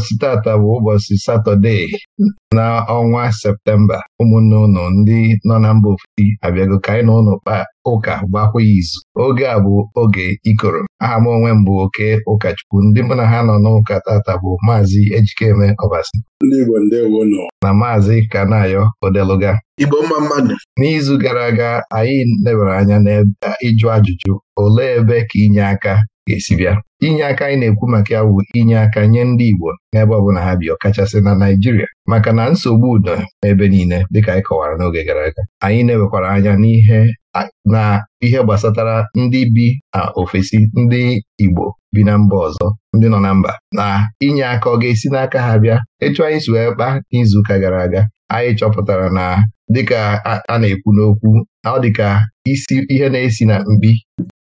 Ụbọchị tata bụ ụbọchị Satọde na ọnwa Septemba ụmụnne ụnụ ndị nọ na mba ofesi abịago ka anyị na ụnụ kpaa ụka gbakwa izu oge a bụ oge ikoro aha m onwe m bụ oke ụkọchukwu ndị mụ na ha nọ n'ụka tata bụ maazị ejikeme ọbasi na maazị kanayo odeluga mmadụ. n'izu gara aga anyị lebara anya n'ịjụ ajụjụ olee ebe ka inye aka ga-esi bịa inye aka anyị na-ekwu maka ya bụ inye aka nye ndị Igbo n'ebe ọbụla ha bi ọkachasị na Naijiria. maka na nsogbu udo n'ebe niile dịka anyị kọwara n'oge gara aga anyị na-ewekwara anya n'ihe na ihe gbasatara ndị bi na ofesi ndị Igbo bi na mba ọzọ ndị nọ na mba na inye aka ọ ga-esi n'aka ha bịa etu anyị si wee kpa n'izuụka gara aga anyị chọpụtara na dịka a na-ekwu n'okwu ọ dịka isi ihe na-esi na mbi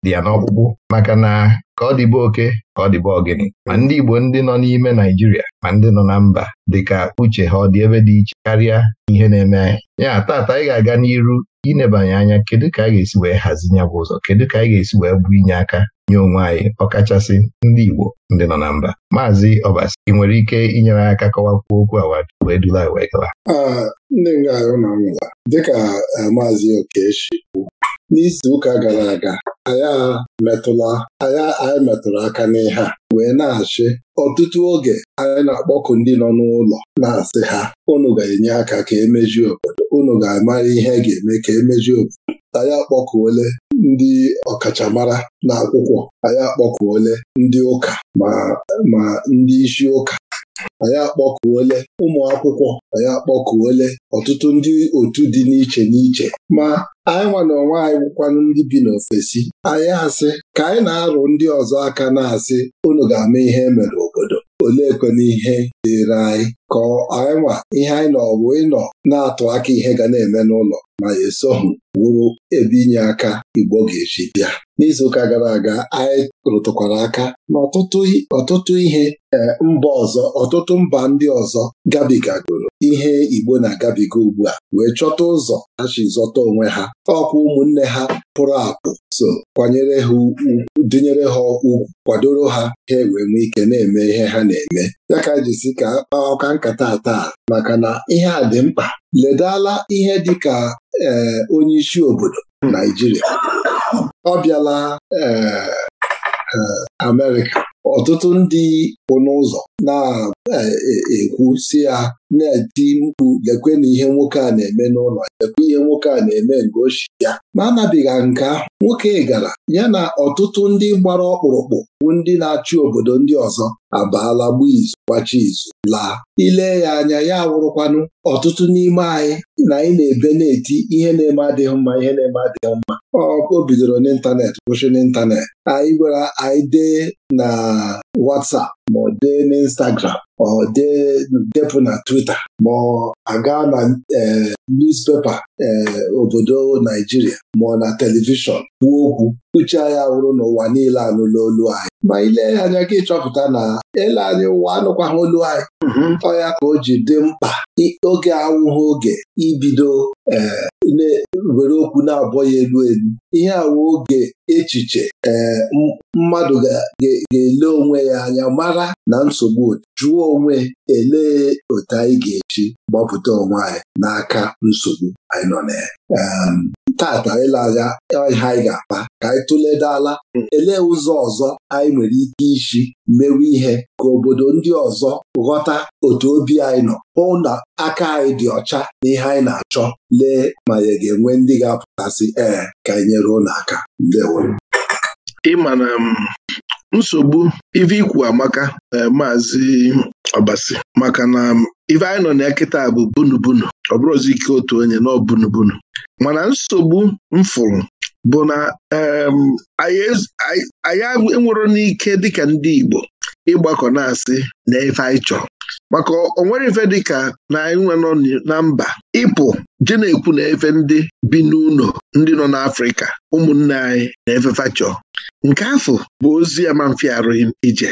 dị ya n'ọkpụkpụ maka na ka ọ dịbe oke ka ọ dịbe ọgịnị ma ndị Igbo ndị nọ n'ime Naijiria ma ndị nọ na mba dịka uche ha ọ dị ebe dị iche karịa ihe na-eme anyị ya taata anyị ga-aga n'iru inebanye anya kedu ka anyị ga-esi wee hazi bụ ụzọ kedu ka anyị ga-esi wee bụ inye aka nye onwe anyị ọkachasị ndị Igbo ndị nọ na mba maazị Ọbasi ị nwere ike inyere aka kọwakwuo okwu awa wee dula wee gawa ndị nga ahụ na nwụla dịka eh, maazị Okechi n'izu ụka gara aga anyị metụla anya anyị metụrụ aka n'ihe wee na-achị ọtụtụ oge anyị na-akpọkụ ndị nọ n'ụlọ na-asị ha unu ga-enye aka ka emeju obodo unu ga-amara ihe e ga-eme ka emeju obodo anyị akpọkuole ndị ọkachamara n'akwụkwọ anyị akpọkuole ndị ụka ma ndị isi ụka anyị akpọkuole ụmụ akwụkwọ anyị akpọkuole ọtụtụ ndị otu dị n'iche n'iche ma anyị nwa na onwe anyị ndị bi n'ofesi anyị asị ka anyị na-arụ ndị ọzọ aka na-asị unu ga-ama ihe emere obodo olee kwena ihe dịịrị anyị ka anyị nwa ihe anyị nọ bụ ịnọ na-atụ aka ihe ga na-eme n'ụlọ ma ya esoghị wụrụ ebe inye aka Igbo ga-eji bịa n'izuụka gara aga anyị rụtụkwara aka n'ọtụtụ ọtụtụ ihe eh, mba ọzọ ọtụtụ mba ndị ọzọ gabigagoro ihe Igbo na-agabiga ugbu a wee chọta ụzọ ha zọta onwe ha ọkwa ụmụnne ha pụrụ apụ so kwanyere ha dịnyere ha ugwu kwadoro ha ha wee nwee ike na-eme ihe ha na-eme ya ka e ji si ka ọka nkata taa maka na ihe a dị mkpa ledala ihe dị ka eh, onye isi obodo Naijiria ọ bịala ee eh, eh, ọtụtụ ndị kwụ n'ụzọ na-ekwu e, si ya na-eti mkpu lekwe na ihe nwoke a na-eme n'ụlọ lekwe ihe nwoke a na-eme nke ya ma anabiga nke nwoke gara ya na ọtụtụ ndị gbara ọkpụrụkpụ bụ ndị na-achị obodo ndị ọzọ abaala gbaa izu gbachi izu laa Ile ya anya ya wụrụkwanụ ọtụtụ n'ime anyị na anyị na-ebe na-eti ihe na-eme adịghị mma ihe na-eme adịghị mma ọkụ bidoro n'ịntanetị kwụsị n'ịntanetị anyị gwara anyị dee na WhatsApp ma dee n'Instagram ma ọ dee depụ na Twitter ma ọ aga na eh, newspaper eh, obodo Naijiria ma na telivishọn kwuo okwu uche anyị wụrụ n'ụwa niile anụla olu anyị ma ilee ya anya ka ịchọpụta na ele anyị ụwa anụkwaghị olu anyị mhm. ọya ya ka o ji dị mkpa oge awụghị oge ibido eh, were okwu na-abọ ya elu elu ihe awụ oge echiche eh, mmadụ ga-ele onwe ya anya mara na nsogbu jụọ onwe elee otu anyị ga-eji gbapụta onwe anyị n'aka nsogbu anyị nọ na ya tata ịlaga ihe anyị ga-akpa ka anyị tụledala elee ụzọ ọzọ anyị nwere ike iji mewe ihe ka obodo ndị ọzọ ghọta otu obi anyị nọ hụ na aka anyị dị ọcha na ihe anyị na-achọ lee ma ya ga-enwe ndị ga-apụtasị ee ka anyị nyere ụlọ aka ndewo ịma na nsogbu ive ikwu amaka eh, maazị ọbasi maka na ive anyị nọ na kịta bụ bunubunu ọ bụrụzi ike otu onye na bunubunu mana nsogbu mfụrụ bụ na anyị e-, enwero n'ike dịka ndị Igbo ịgbakọ na-asị na ife anyị chọrọ maka onwere ife dịka na anyị nwe nọ na mba ịpụ je na-ekwu na efe ndị bi n'ụlọ ndị nọ n'Afrịka ụmụnne anyị na efefa chọọ nke afọ bụ ozi ya ma mfe arụghị ije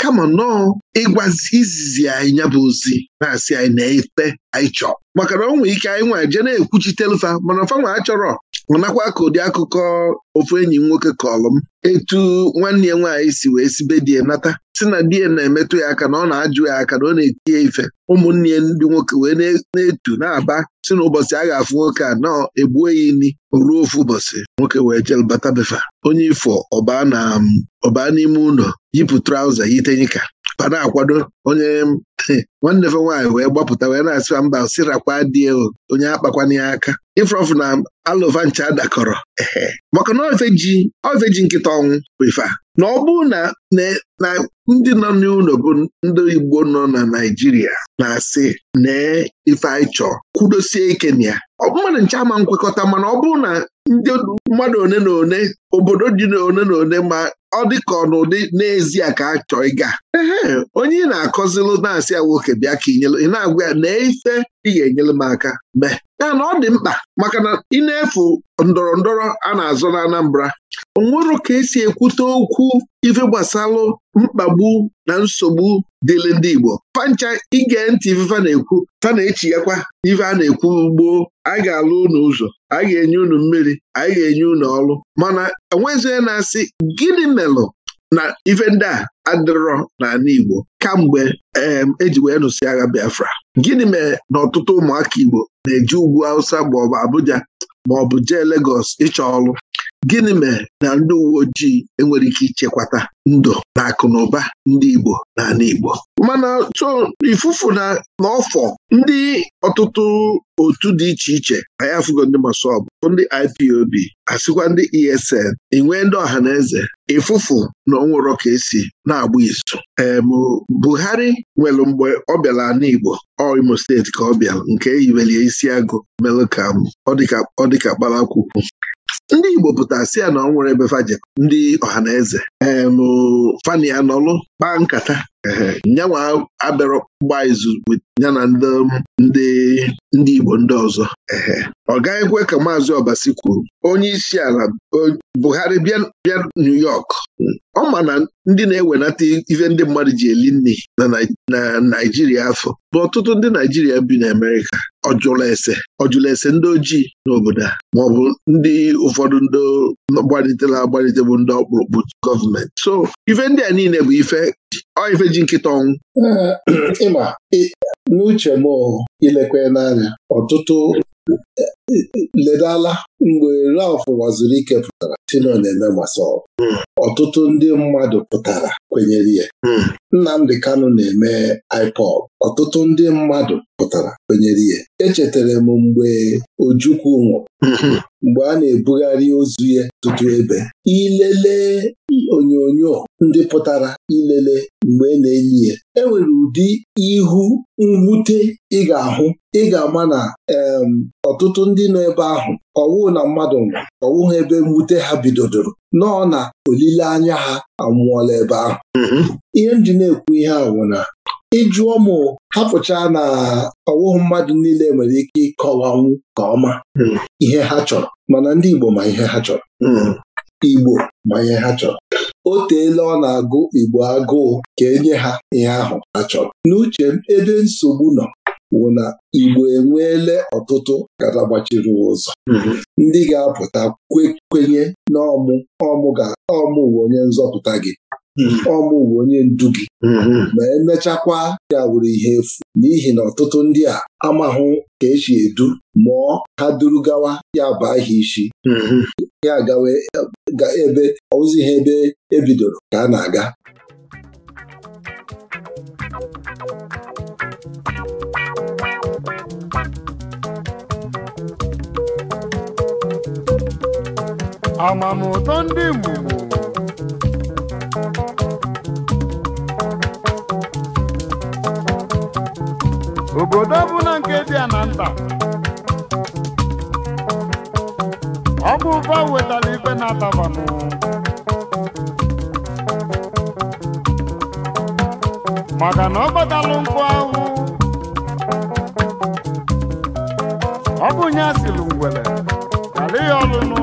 kama nọọ ịgwazi izizi anyị ya bụ ozi na-asị anyị na-efe anyị chọọ maka na nwee ike anyị nwa jee na-ekwuchitelfa mana fanwa achọrọ nakwa ka ụdị akụkọ ofu enyi m nwoke kọlụ m etu nwanne ya nwaanyị si wee sibe die nata si na die na-emetụ ya aka na ọ na-ajụ ya aka na ọ na-eti ife ụmụnne ya ndị nwoke wee na-etu na-aba si na ụbọchị a ga-afụ nwoke a nọọ egbuo ya ini ruo ofu ụbọchị nwoke wee jelbata befa onye ifo ọba n'ime ụlọ yipụ traụza yitenyika ba na-akwado onye nwanne fe nwaanyị wee gbapụta wee na-asịwa mba sirakwa dị onye akpakwana ya aka ifrọfụ na alụva ncha dakọrọ maka na ofe ji nkịta ọnwụ bụ na ọ bụrụ na na ndị nọ n'ụlọ bụ ndị Igbo nọ na Naịjirịa na-asị nee ife kwudosie ike na ya mmadụ nche ama nkwekọta mana ọ bụrụ na ndị mmadụ one na one obodo dị one na one ma ọ dị ọ n'ụdị n'ezie ka a chọọ ịga ee onye ị na-akọzilụ na-asị ya nwoke bịa ka ị na-agwa ya na ife ị ga-enyere m aka mee ya na ọ dị mkpa maka na ị na-efu ndọrọ ndọrọ a na-azọ na Anambra onwero ka esi ekwute okwu ife gbasalụ mkpagbu na nsogbu dịịrị ndị Igbo pancha ige ntị ifefa na-ekwu fa na yakwa ife a na-ekwu gboo Anyị ga-alụ unu ụzọ anyị ga-enye unu mmiri anyị ga-enye unu ọrụ mana enwezie na-asị gịnị melụ na ife ndị a adịrọ n'ala Igbo kamgbe eji e wee nụsị agha Biafra gịnị mere na ọtụtụ ụmụaka Igbo na-eji ugwu Hausa maọbụ Abuja maọbụ jee Legọs ịchọ ọrụ gịnị mere na ndị uwe ojii enwere ike ichekwata ndụ na akụ na ụba ndị Igbo n'ala Igbo mana so ifufu na n'ọfọ ndị ọtụtụ otu dị iche iche anyị afụgo ndị masọbụ ndị IPOB asịkwa ndị ESN enwee ndị ọha na eze ịfụfụ na onwero ka esi na-agba izu em Buhari nwere mgbe ọ bịara ala Igbo Imo steeti ka ọ bịara nke e yibelie isi agụ melụ ka ọ dịka kpara akwụkwọ ndị Igbo pụtara si ya na ọ nwere ebe fajekọ ndị ọha na eze em fani anọlụ kpaa nkata nyanwa abịara ọkpụkpa izu ya na um, ndị ndị Igbo ndị ọzọ ọ gaghị ekwe ka maazị Obasi kwuru onye isi ala Buhari bịa New York ọ ma na ndị na-ewenata ife ndị mmadụ ji eli nri na Naijiria afọ bụ ọtụtụ ndị Naijiria bi n'Amerika ọjụla ese ọjụla ese ndị ojii n'obodo a maọbụ ndị ụfọdụ ndị gbalitela agbalite bụ ndị ọkpụrụkpụ gọọmenti so ife ndị a niile bụ ife ọ ife ji nkịta ọnwụ ịma n'uche m ilekwe n'anya ọtụtụ e, e, e, ledala mgbe Ralph ike pụtara 'Tino na-eme gbasara hmm. ọtụtụ ndị mmadụ pụtara kwenyere ya hmm. Nnamdi Kanu na-eme ipod. ọtụtụ ndị mmadụ pụtara kwenyere ihe. echetara m mgbe Ojukwu nwụrụ hmm. mgbe a na-ebugharị ozu ya tụtụ ebe ilele onyonyo ndị pụtara ilele mgbe e na-enyi ya enwere ụdị ihu mwute ị ga-ahụ ị ga-ama na ọtụtụ ndị nọ ebe ahụ ọwụ na mmadụ nwụrụ ọwụ ha ebe mwute ha bidodoro nọọ na olileanya ha anwụọla ebe ahụ mm-hmm. ihe m ji na-ekwu ihe ahụ na ịjụ ụmụ hapụcha na ọwụhụ mmadụ niile nwere ike ịkọwanwu ka ọma mm. ihe ha chọrọ mana ndị Igbo ma ihe ha chọrọ mm. Igbo ma ihe ha chọrọ o teela ọ na-agụ Igbo agụụ ka enye ha ihe ahụ ha chọrọ n'uche ebe nsogbu nọ wụ na Igbo enweele ọtụtụ nkata gbachiri ụzọ mhm. ndị ga-apụta kwenye na ọmụ ọmụ uwe onye nzọpụta gị mhm. ọmụ uwe onye ndu gị mhm. ma emechakwa ya wuru ihe efu n'ihi na ọtụtụ ndị a amahụ ka esi edu mụọ ha duru gawa ya bụ aha isi ya gawa ebe ọwụzi ha ebe ebidoro ka a na-aga amamụtọ ndị mgbugbo obodo ọbụla nke dị a na nta ọ bụ ụba wetara ife na-atabanụ maka na ọ gbatalụ nkụ ahụ ọ nye asịlụ ngwere ala ọlụnụ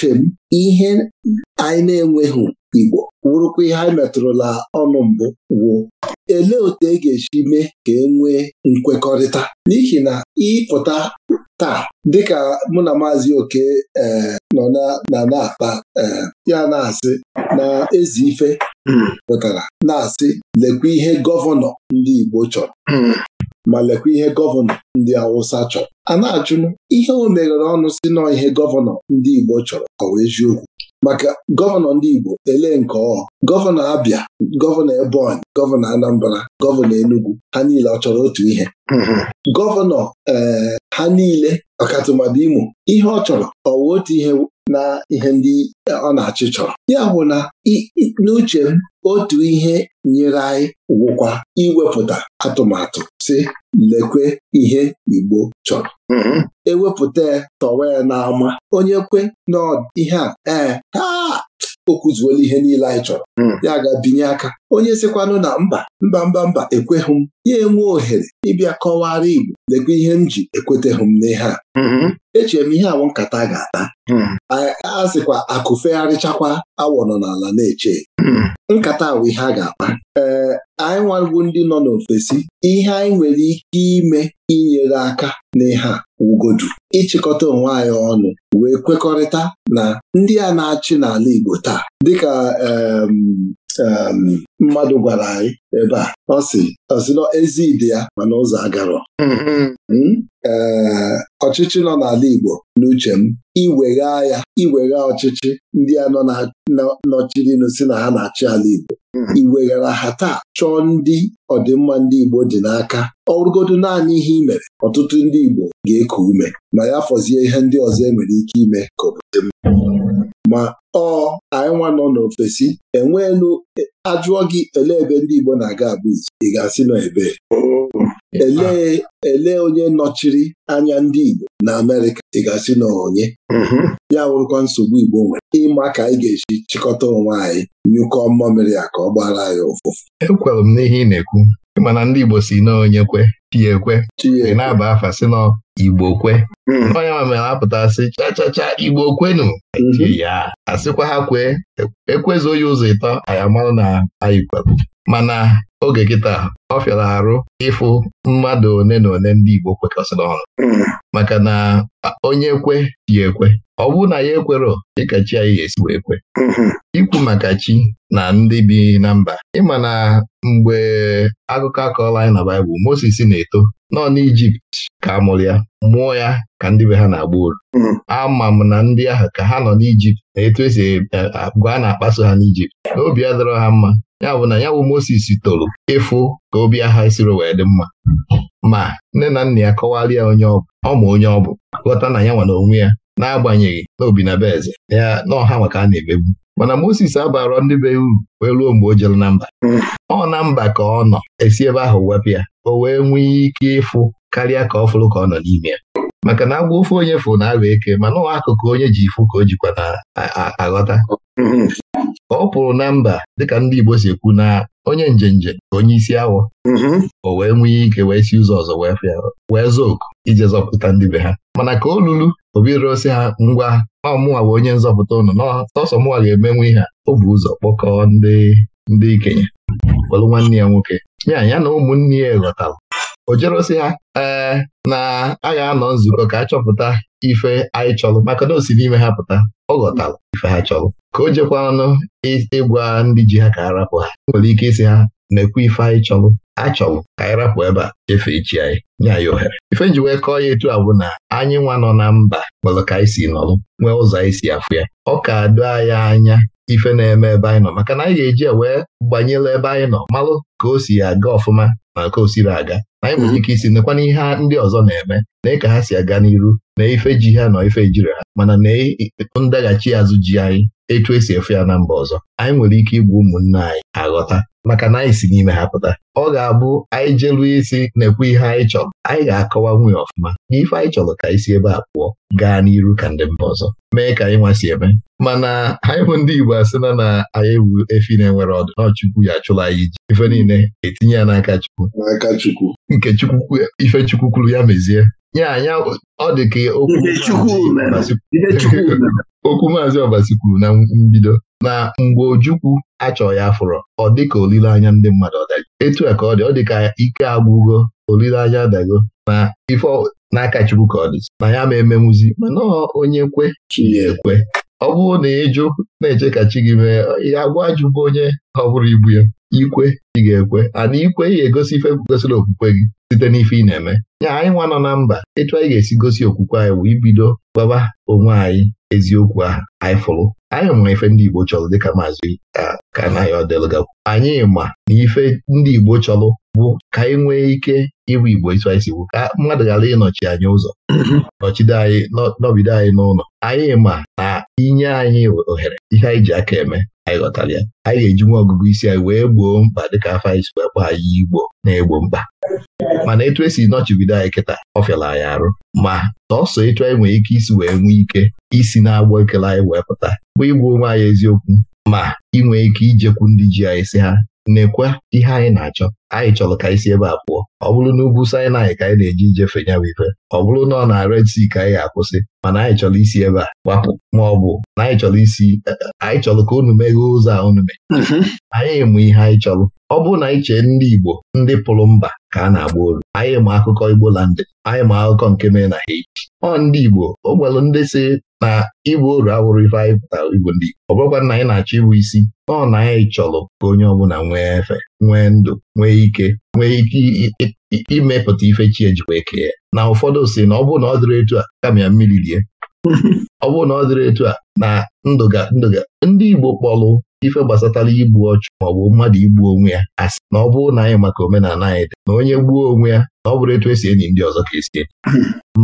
uche m ihe anyị na-enweghị Igbo wụrụkwa ihe anyị metụrụla ọnụ mbụ wuo elee otu e ga-esi mee ka e nwee nkwekọrịta n'ihi na ịpụta taa dịka mụ na maazị oke e, nọ na na-akpa e, ya na-asị na ezi ife hmm. pụtara na-asị lekwa ihe gọvanọ ndị Igbo chọrọ hmm. ma lekwa ihe gọvanọ ndị Awụsa chọrọ a na achụnụ ihe o meghere ọnụ si nọ ihe gọvanọ ndị Igbo chọrọ ọ wee eziokwu maka gọvanọ ndị Igbo ele nke ọ. gọvanọ Abia gọvanọ Ebonyi gọvanọ Anambra gọvanọ Enugu ha niile ọ chọrọ otu ihe gọvanọ ee eh, ha niile ọkatụmadụ Imo ihe ọ chọrọ ọ otu ihe na ihe ndị ọ na-achị chọrọ ya bụ na n'uche m otu ihe nyere anyị wụkwa iwepụta atụmatụ si lekwe ihe Igbo chọrọ mm-hmm. ewepụta ya tọwa ya n'ama onye kwe na ihe a ee o kụzuola ihe niile anyị chọrọ hmm. ya ga binye aka onye sikwanụ na mba mba mba mba ekweghị m ya enwe ohere ịbịa kọwara Igbo lekwa ihe m ji ekweteghị m n'ihe a mm-hmm. echere m ihe awụ nkata ga-ata hmm. a sịkwa akụ fegharịchakwa awọ nọ n'ala na-eche hmm. nkata awụ ihe a ga-akpa anyị nwago ndị nọ n'ofesi ihe anyị nwere ike ime inyere aka n'ihe a wugodu ịchịkọta onwe anyị ọnụ wee kwekọrịta na ndị a na-achị n'ala Igbo taa dịka mmadụ gwara anyị ebe a ọ sị ọsịnọ ezi ide ya mana ụzọ agarọ hmm, hmm. Hmm? ee ọchịchị nọ n'ala Igbo n'uche m iwegha ya iwegha ọchịchị ndị a nọ nọchirinu si na ha na-achị ala Igbo hmm. iweghara ha taa chọọ ndị ọdịmma ndị Igbo dị n'aka ọrụgodo naanị ihe ị mere ọtụtụ ndị Igbo ga-eku ume ma ya fọzie ihe ndị ọzọ e nwere ike ime ka obodo ma ọ anyị nwa nọ n'ofesi enweelu e, ajụọ gị elee ebe ndị Igbo na-aga abụ ị ga-asị nọ ebee oh. elee elee onye nọchiri anya ndị Igbo na Amerịka ị ga-asị na onye mm-hmm. ya wụrụkwa nsogbu Igbo nwere ịma ka anyị ga-eji chịkọta onwe anyị nyụkọ mmamịrị ya ka ọ gbara anyị ụfụfụ ekwere m n'ihe ị na-ekwu mana ndị Igbo si na onye kwe e e ị na-aba afa sị na Igbo kwe hmm. onye ma mere apụtasị chachacha Igbo kwenu hmm. ya asịkwa ha kwee ekwezuo ya ụzọ ịtọ anyị amarụ na anyị kwerụ mana oge kịta ọ fịara arụ ịfụ mmadụ one na na ndị Igbo kwekọsịrị ọrụ hmm. maka na onye ekwe ya ekwe ọ bụrụ na ya ekwerọ dịka chi anyị ga-esi wee ekwe hmm. ikwu maka chi na ndị bi na mba ịma na mgbe akụkọ akọọla anyị na Baịbụl Mozis na-eto nọ n'ijipt ka amụrụ ya mụọ ya ka ndị be ha na-agba uru hmm. ama m na ndị ahụ ka ha nọ n'ijipt na etu esi eh, agwa a na-akpaso ha n'ijipt na obi dọrọ ha mma ya bụ na ya bụ Moses toro ịfụ ka obi agha siri wee dị mma ma nne na nna ya kọwara ya onye ọ ma onye ọ bụ ghọta na ya nwa na onwe ya n'agbanyeghị na obi na be eze ya na ọha maka a na-emegbu mana Moses abara ndị be uru wee ruo mgbe o jere na mba ọ na mba ka ọ nọ esi ebe ahụ wepụ ya o wee nwee ike ịfụ karịa ka ọ fụrụ ka ọ nọ n'ime ya maka na agwa ofe onye fụrụ na agwa eke mana ọ akụkụ onye ji ifụ ka o jikwa na aghọta ọ pụrụ na mba dịka ndị Igbo si ekwu na onye njenje ka onye isi awọ mhm. o wee nwee ike wee si ụzọ ọzọ wee fịa wee zọọ oku ije zọpụta ndị be ha mana ka o lulu obi rụosi ha ngwa na ọmụnwa bụ onye nzọpụta ụnụ n'ọsọ mụnwa ga-emenwe ihe o bụ ụzọ kpọkọọ ndị ndị ikenye kwelụ nwanne ya nwoke ya ya na ụmụnne ya ghọtara o jerosi ha ee na a ga-anọ nzukọ ka a chọpụta ife anyị chọrọ maka na o si n'ime ha pụta ọ ghọtara ife ha chọrọ ka o jekwa jekwanụ ịgwa ndị ji ha ka a rapụ ha nwere ike isi ha mekwa ife anyị chọrọ achọrọ ka anyị rapụ ebe a efe echi anyị nye anyị ohere ife nji wee kọọ ya etu a bụ na anyị nwa nọ na mba nwere ka anyị si nọrọ nwee ụzọ anyị si afụ ya ọ ka doo anyị anya ife na-eme ebe anyị nọ maka na anyị ga-eji wee gbanyere ebe anyị nọ malụ ka o si aga ọfụma ma ka o siri aga anyị nwere mhm. ike isi nekwana ihe ndị ọzọ na-eme na ka ha si aga n'iru na ife ji ha nọ ife jiri ha mana na ndaghachi azụ ji anyị etu esi efe ya na mba ọzọ anyị nwere ike igbu ụmụnne anyị aghọta maka na anyị si n'ime ha pụta ọ ga-abụ anyị jelu isi na-ekwu ihe anyị chọrọ anyị ga-akọwa nwunye ọfụma na ife anyị chọrọ ka anyị ebe a pụọ gaa n'iru ka ndị mba ọzọ mee ka anyị nwasi eme mana anyị bụ ndị Igbo asịna na anyị wu efi na-enwere ọdụ n'ọchukwu ya achụla anyị iji ife niile etinye ya n'aka Chukwu n'aka Chukwu nke Chukwu ife Chukwu kwuru ya mezie ya anya ọ dị ka okwu maazị Ọbasi kwuru na mbido na mgbe Ojukwu achọ ya fụrọ ọ dịka olileanya ndị mmadụ ọdaji otu a ka ọ dị ọ dị ka ike agwụgo olileanya adago na ife n'aka Chukwu ka ọ dị na ya ma emenwuzi mana onye kwe chi ya ekwe ọ bụrụ na ịjụ na-eche ka chi gị mee ya gwa ajụbụ onye ọ bụrụ ibu ya ikwe ị ga-ekwe ana ikwe ị ga-egosi ife gosiri okwukwe gị site n'ife ị na-eme ya anyị nwa nọ na mba etu anyị ga-esi gosi okwukwe anyị bụ ibido gbaba onwe anyị eziokwu ahụ anyị fụrụ anyị ma ife ndị Igbo chọrọ dịka maazị ka anaghị anyị ma na ife ndị Igbo chọrọ bụ ka anyị e nwee ike ịbụ Igbo iso anyị si ka mmadụ ghara ịnọchi anyị ụzọ mhm. nọchide anyị nọbido anyị n'ụlọ anyị ma na inye anyị ohere ihe anyị ji aka eme anyị ghọtara ya anyị ga-eji nwa ọgụgụ isi anyị wee gboo mkpa dịka afọ anyị si wee kpọ anyị Igbo na-egbo mkpa mana etu esi nọchibido anyị kịta ọ fịara anyị arụ ma sọsọ etu anyị nwere ike isi wee nwee ike isi na-agbọ ekele anyị wee pụta bụ ịgwa onwe anyị eziokwu ma inwe ike ijekwu ndị ji anyị si ha nekwa ihe anyị na-achọ anyị chọrọ ka isi ebe a pụọ ọ bụrụ na ugwu Sinai ka anyị na-eji ijefe nyawa ife ọ bụrụ na ọ na Red Sea ka anyị ga-akwụsị mana anyị chọrọ isi ebe a gbapụ ma ọ bụ na anyị chọrọ isi eh, eh, anyị chọrọ ka unu meghee ụzọ a unu mee mhm. anyị mụ ihe anyị chọrọ ọ bụrụ na iche ndị Igbo ndị pụrụ mba ka a na-agba olu anyị ma akụkọ Igbo landị anyị ma akụkọ nke mere na Haiti ọ ndị Igbo o ndị si na igbo oru awụrụ ife anyị pụtara Igbo ndị Igbo ọ bụrụkwa na anyị na-achọ ịbụ isi ọ na anyị chọrọ ka onye ọbụla nwee efe nwee ndụ nwee ike nwee ike imepụta ife chi ejikwa eke ya na ụfọdụ si na ọ bụrụ na ọ dịrị etu a kama ya mmiri rie. ọ bụrụ na ọ dịrị etu a na ndụga ndụga ndị Igbo kpọlụ ife gbasatara igbu ọchụ maọbụ mmadụ igbu onwe ya asị na ọ bụrụ na anyị maka omenala anyị dị na onye gbuo onwe ya na ọ bụrụ etu esi enyi ndị ọzọ ka esi enyi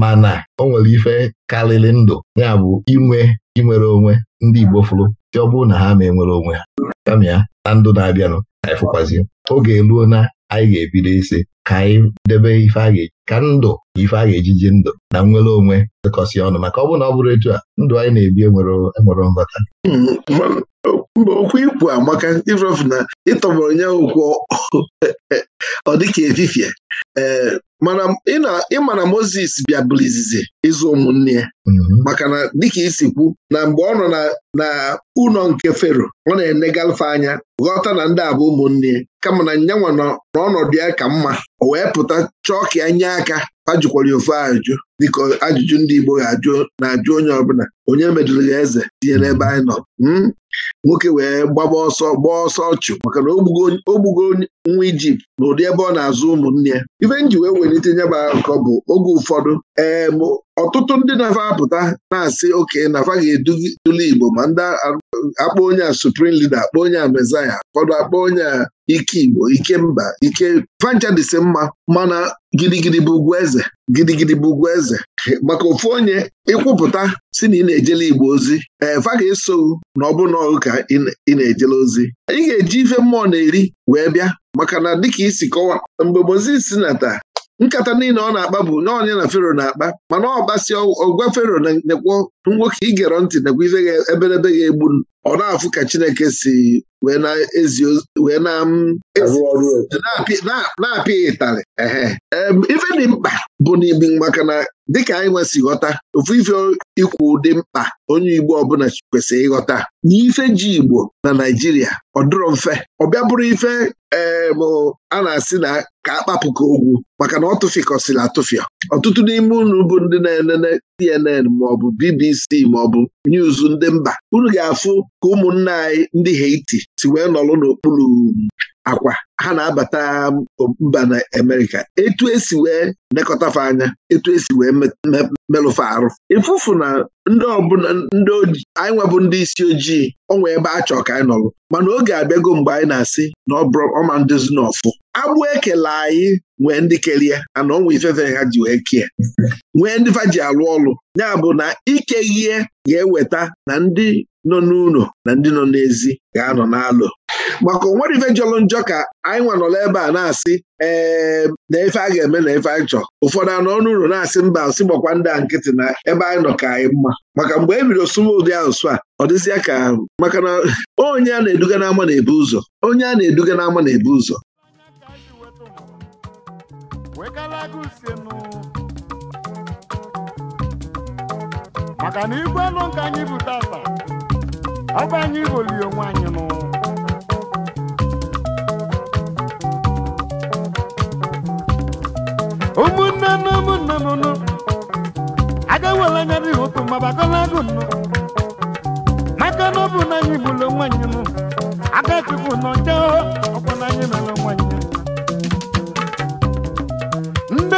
mana o nwere ife karịrị ndụ ya bụ inwe inwere onwe ndị Igbo fụrụ si ọ bụrụ na ha ma enwere onwe ha kama ya na ndụ na-abịanụ ka anyị fụkwazi oge eruo na anyị ga-ebido isi ka anyị debe ife a ga-eji ka ndụ ife a ga-ejiji ndụ na nnwere onwe dịkọsị ọnụ maka ọ bụrụ na ọ bụrụ etu a ndụ anyị na-ebi enwere e nghọta hmm, Mgbe okwu ikwu amaka ịrọfụ na ịtọgbọrọ ya okwu ọ dịka efifie ee eh, ịma na moses bịa bụrụ izizi ịzụ ụmụnne ya mhm. maka na dịka isi kwu na mgbe ọ nọ na ụlọ nke Fero ọ na-enegalfe anya ghọta na ndị abụ ụmụnne kama na nyanwa nọ n'ọnọdụ ya ka mma o wee pụta chọọ ka ya nye aka ajụkwara ofe ajụjụ dịka ajụjụ ndị Igbo ga-ajụ na-ajụ onye ọbụla onye mejụrụ ya eze tinye n'ebe anyị nọ hmm? nwoke wee gbaba ọsọ gbaa ọsọ ọchụ maka na o gbugo nwa Ijipt ụdị ebe ọ na-azụ ụmụnne ya ife nji wee welite nyaba bụ oge ụfọdụ ee ọtụtụ ndị na-afa apụta na-asị oke na ga-eduli Igbo ma ndị akpọ onye a suprim leader akpọ onye a mezaya ụfọdụ akpọ onye a ike Igbo ike mba ike fancha dịsị mma mana gidigidi bụ ugwu eze gidigidi bụ ugwu eze maka ofu onye ịkwụpụta si na ị na-ejele Igbo ozi ee eh, fa ga na ọ bụna ụka ị na-ejele ozi ị ga-eji ife mmụọ na-eri wee bịa maka na dịka isi kọwa mgbe Mozis nata nkata niile ọ na-akpa bụ nye na fero na-akpa mana ọ gbasịa ọgwa fero na-ekwo nwoke igere ntị nakwa ife eberebe ga-egbu ọ na-afụ ka Chineke si wee na-apịa ịtarị ehe ife dị mkpa bụ n'ime maka na dịka anyị nwesị ghọta ofu ife ikwu dị mkpa onye Igbo ọbụla kwesịrị ịghọta na ife ji Igbo na Naijiria ọ dịrọ mfe ọ bịa bụrụ ife a na-asị na ka akpapụka ogwu maka na ọ tụfikọsịrị atụfịa ọtụtụ n'ime unu bụ ndị na-enene CNN maọbụ BBC maọbụ news ndị mba unu ga-afụ ka ụmụnna anyị ndị Haiti si wee nọrọ n'okpuru akwa ha na-abata mba na amerika etu esi wee nekọtafe anya etu esi wee melụfe arụ ịfụfụ na ndị ọbụla ndị anyị nwebụ ndị isi ojii ọnwa ebe a chọọ ka anyị nọrọ mana oge abịago mgbe anyị na-asị na ọma ndezi na ọfụ agbụ ekele anyị nwee ndị kerie ana ọnwa ifefe ha ji wee kie. nwee ndị fa ji alụ ọlụ ya bụ na ike ihe ga-eweta na ndị nọ n'ụlọ na ndị nọ n'ezi ga-anọ n'alụ maka onwere ife jọrọ njọ ka anyị nwanọla ebe a na-asị ee na ife a ga-eme na ife anyị chọ ụfọdụ anọ ọnụ ụlọ na-asị mba asị gbakwa ndị a nkịtị na ebe anyị nọ ka anyị mma maka mgbe e bido sụwa ụdị asụsụ a ọ dịzịa ka maka na onye a na-eduga n'ama na-ebu ụzọ onye a na-eduga n'ama na-ebu ụzọ si maka na igwe elu nke anyị bụ tata ọ anyị bụli onwe anyị nụ ụmụnne na ụmụnne aga nwere anya n'ihi otu mabagolago nụ maka na ọ na anyị bụlụ onwe anyị nụ aka chukwu ọkwa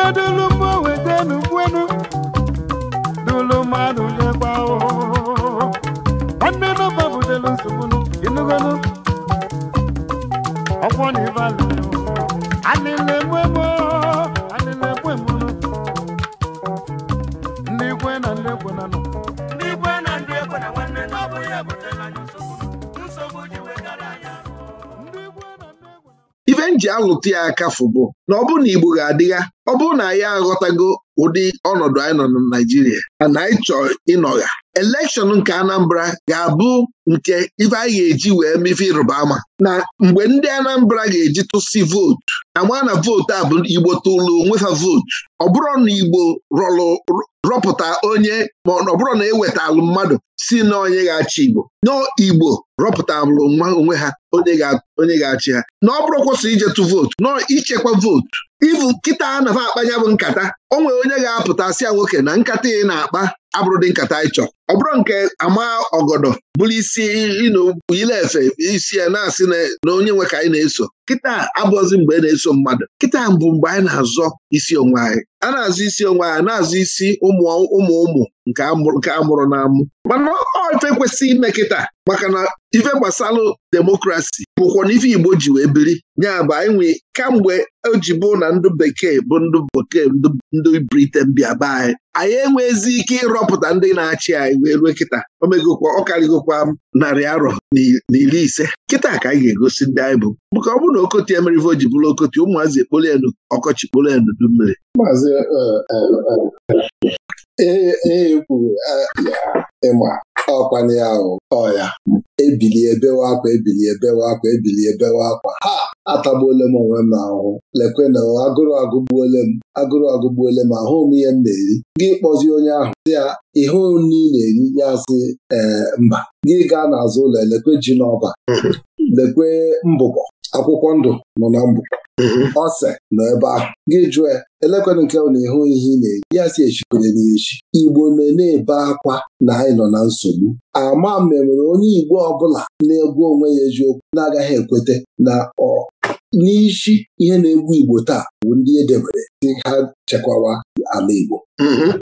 odulugbo ya ife m ji ya aka fụbụ na ọ bụrụ na Igbo ga-adịgha ọ bụrụ na anyị aghọtago ụdị ọnọdụ anyị nọ na Naịjirịa na anyị chọọ ịnọgha elekshọn nke Anambra ga-abụ nke ife anyị ga-eji wee mefe ịrụba ama na mgbe ndị Anambra ga-eji tụsị vootu ama na vootu a bụ Igbo tụlụ onwefa vootu ọ bụrụ na Igbo rọlụ rọpụta onye ma ọ bụrụ na ewetalụ mmadụ si na onye ga-achị Igbo n'Igbo rọpụta bụrụ nwa onwe ha onye ga-achị ha na ọ bụrụ kwụsị tụ vootu nọ ichekwa vootu ivu nkịta a na akpanya bụ nkata o nwere onye ga-apụta sịa nwoke na nkata ị na-akpa abụrụ dị nkata anyị chọrọ ọ bụrụ nke ama ọgọdọ bụrụ isi efe isi ya na-asị na onye nwe ka anyị na-eso kịta abụọzị mgbe ị na-eso mmadụ kịta mbụ mgbe anyị na-azọ isi onwe anyị a na-azụ isi onwe anyị na-azụ isi ụmụ ụmụ ụmụ nke amụrụ na amụ mana ọ ife ime kịta maka na ife gbasalụ demokrasi bụkwa na ife Igbo ji wee biri nyabụ bụ anyị nwee kamgbe oji bụ na ndụ bekee bụ ndụ bekee ndụ Briten bịa be anyị anyị enwezi ike ịrọpụta ndị na-achị anyị wee rue kịta omegokwa ọkarịgokwa narị arọ na iri ise kịta ka anyị ga-egosi ndị anyị bụ maka ọ bụrụ na okoti emerive o ji bụrụ okoti ụmụazị ekpolu elu ọkọchị kpolu elu du mmiri eh, eh, eh, ee e, e, e kwuru ịma ọkwana ahụ ahụ ọya ebilie bewe akwa ebilie bewe akwa ebilie bewe akwa ha atagbuole m onwe m lekwe na agụrụ agụgbuole m agụrụ agụgbuole m ahụ m ihe m na-eri gị kpọzi onye ahụ dị ya ihe nri na-eri ya sị ee mba gị gaa n'azụ ụlọ elekwe ji n'ọba lekwe mbụbọ akwụkwọ ndụ nọ na mbụbọ ọse nọ ebe ahụ gị jụọ ya nke ahụ na-ehu ihe ị na eji ya si echikwanye n'echi Igbo na-ebe akwa na anyị nọ na nsogbu ama memere onye Igbo ọbụla na-egwu onwe ya eziokwu na-agaghị ekweta na ọ n'isi ihe na-egbu Igbo taa bụ ndị edebere dị ha chekwawa ala Igbo mm-hmm.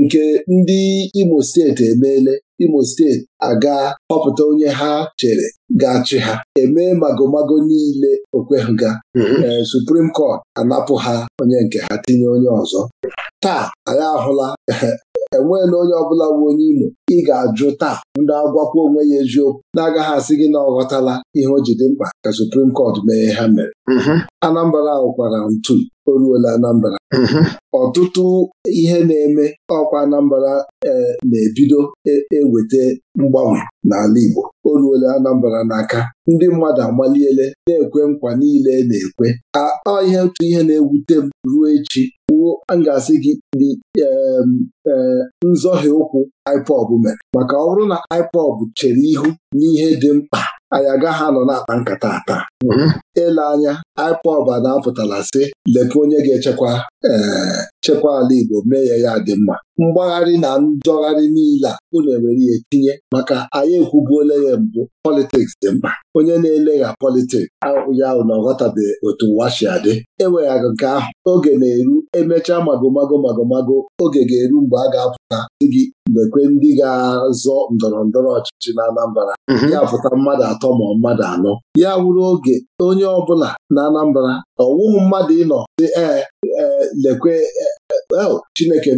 nke ndị Imo steeti emeela Imo steeti aga họpụta onye ha chere ga-achị ha emee magomago niile okweghịga mm-hmm. ee eh, Suprim Kọt anapụ ha onye nke ha tinye onye ọzọ taa anyị ahụla eh, enweela onye ọbụla bụ onye Imo ị ga-ajụ taa ndị agwakwa onwe ya eziokwu na-agaghị asị gị na ọ ghọtala ihe o ji dị mkpa ka Supreme Court mee ha mere mm-hmm. Anambra kwara ntu o ruola Anambra mm-hmm. ọtụtụ ihe na-eme ọkwa Anambra eh, na-ebido e-, eweta mgbanwe n'ala Igbo o ruola anambara n'aka ndị mmadụ agbaliele na-ekwe nkwa niile e na-ekwe akpa ihe otu ihe na-ewute m ruo echi wuo a ga-asị gị dị e, ụkwụ IPOB mere maka ọ bụrụ na IPOB chere ihu n'ihe dị mkpa anyị ha nọ na-akpa nkata ata. Mhm. ele anya IPOB na-apụtara si, leke onye ga-echekwa eh, chekwa ala Igbo mee ya ya dị mma mgbagharị na njọgharị niile a unu ewere ya etinye maka anyị ekwubuola ya mbụ politiks dị mkpa onye na-ele ya politiks ya ahụ na ọ ghọtabeghị otu washi adị enweghị nke ahụ oge na-eru emechaa magomago magomago oge ga-eru mgbe a ga-apụta di gị mgbe ndị ga-azọ ndọrọ ndọrọ ọchịchị na Anambra mhm. ya pụta mmadụ atọ ma mmadụ anọ ya wụrụ oge onye ọ bụla na Anambra ọwụghị mmadụ ịnọ dị ee e, lekwe e, e, Chineke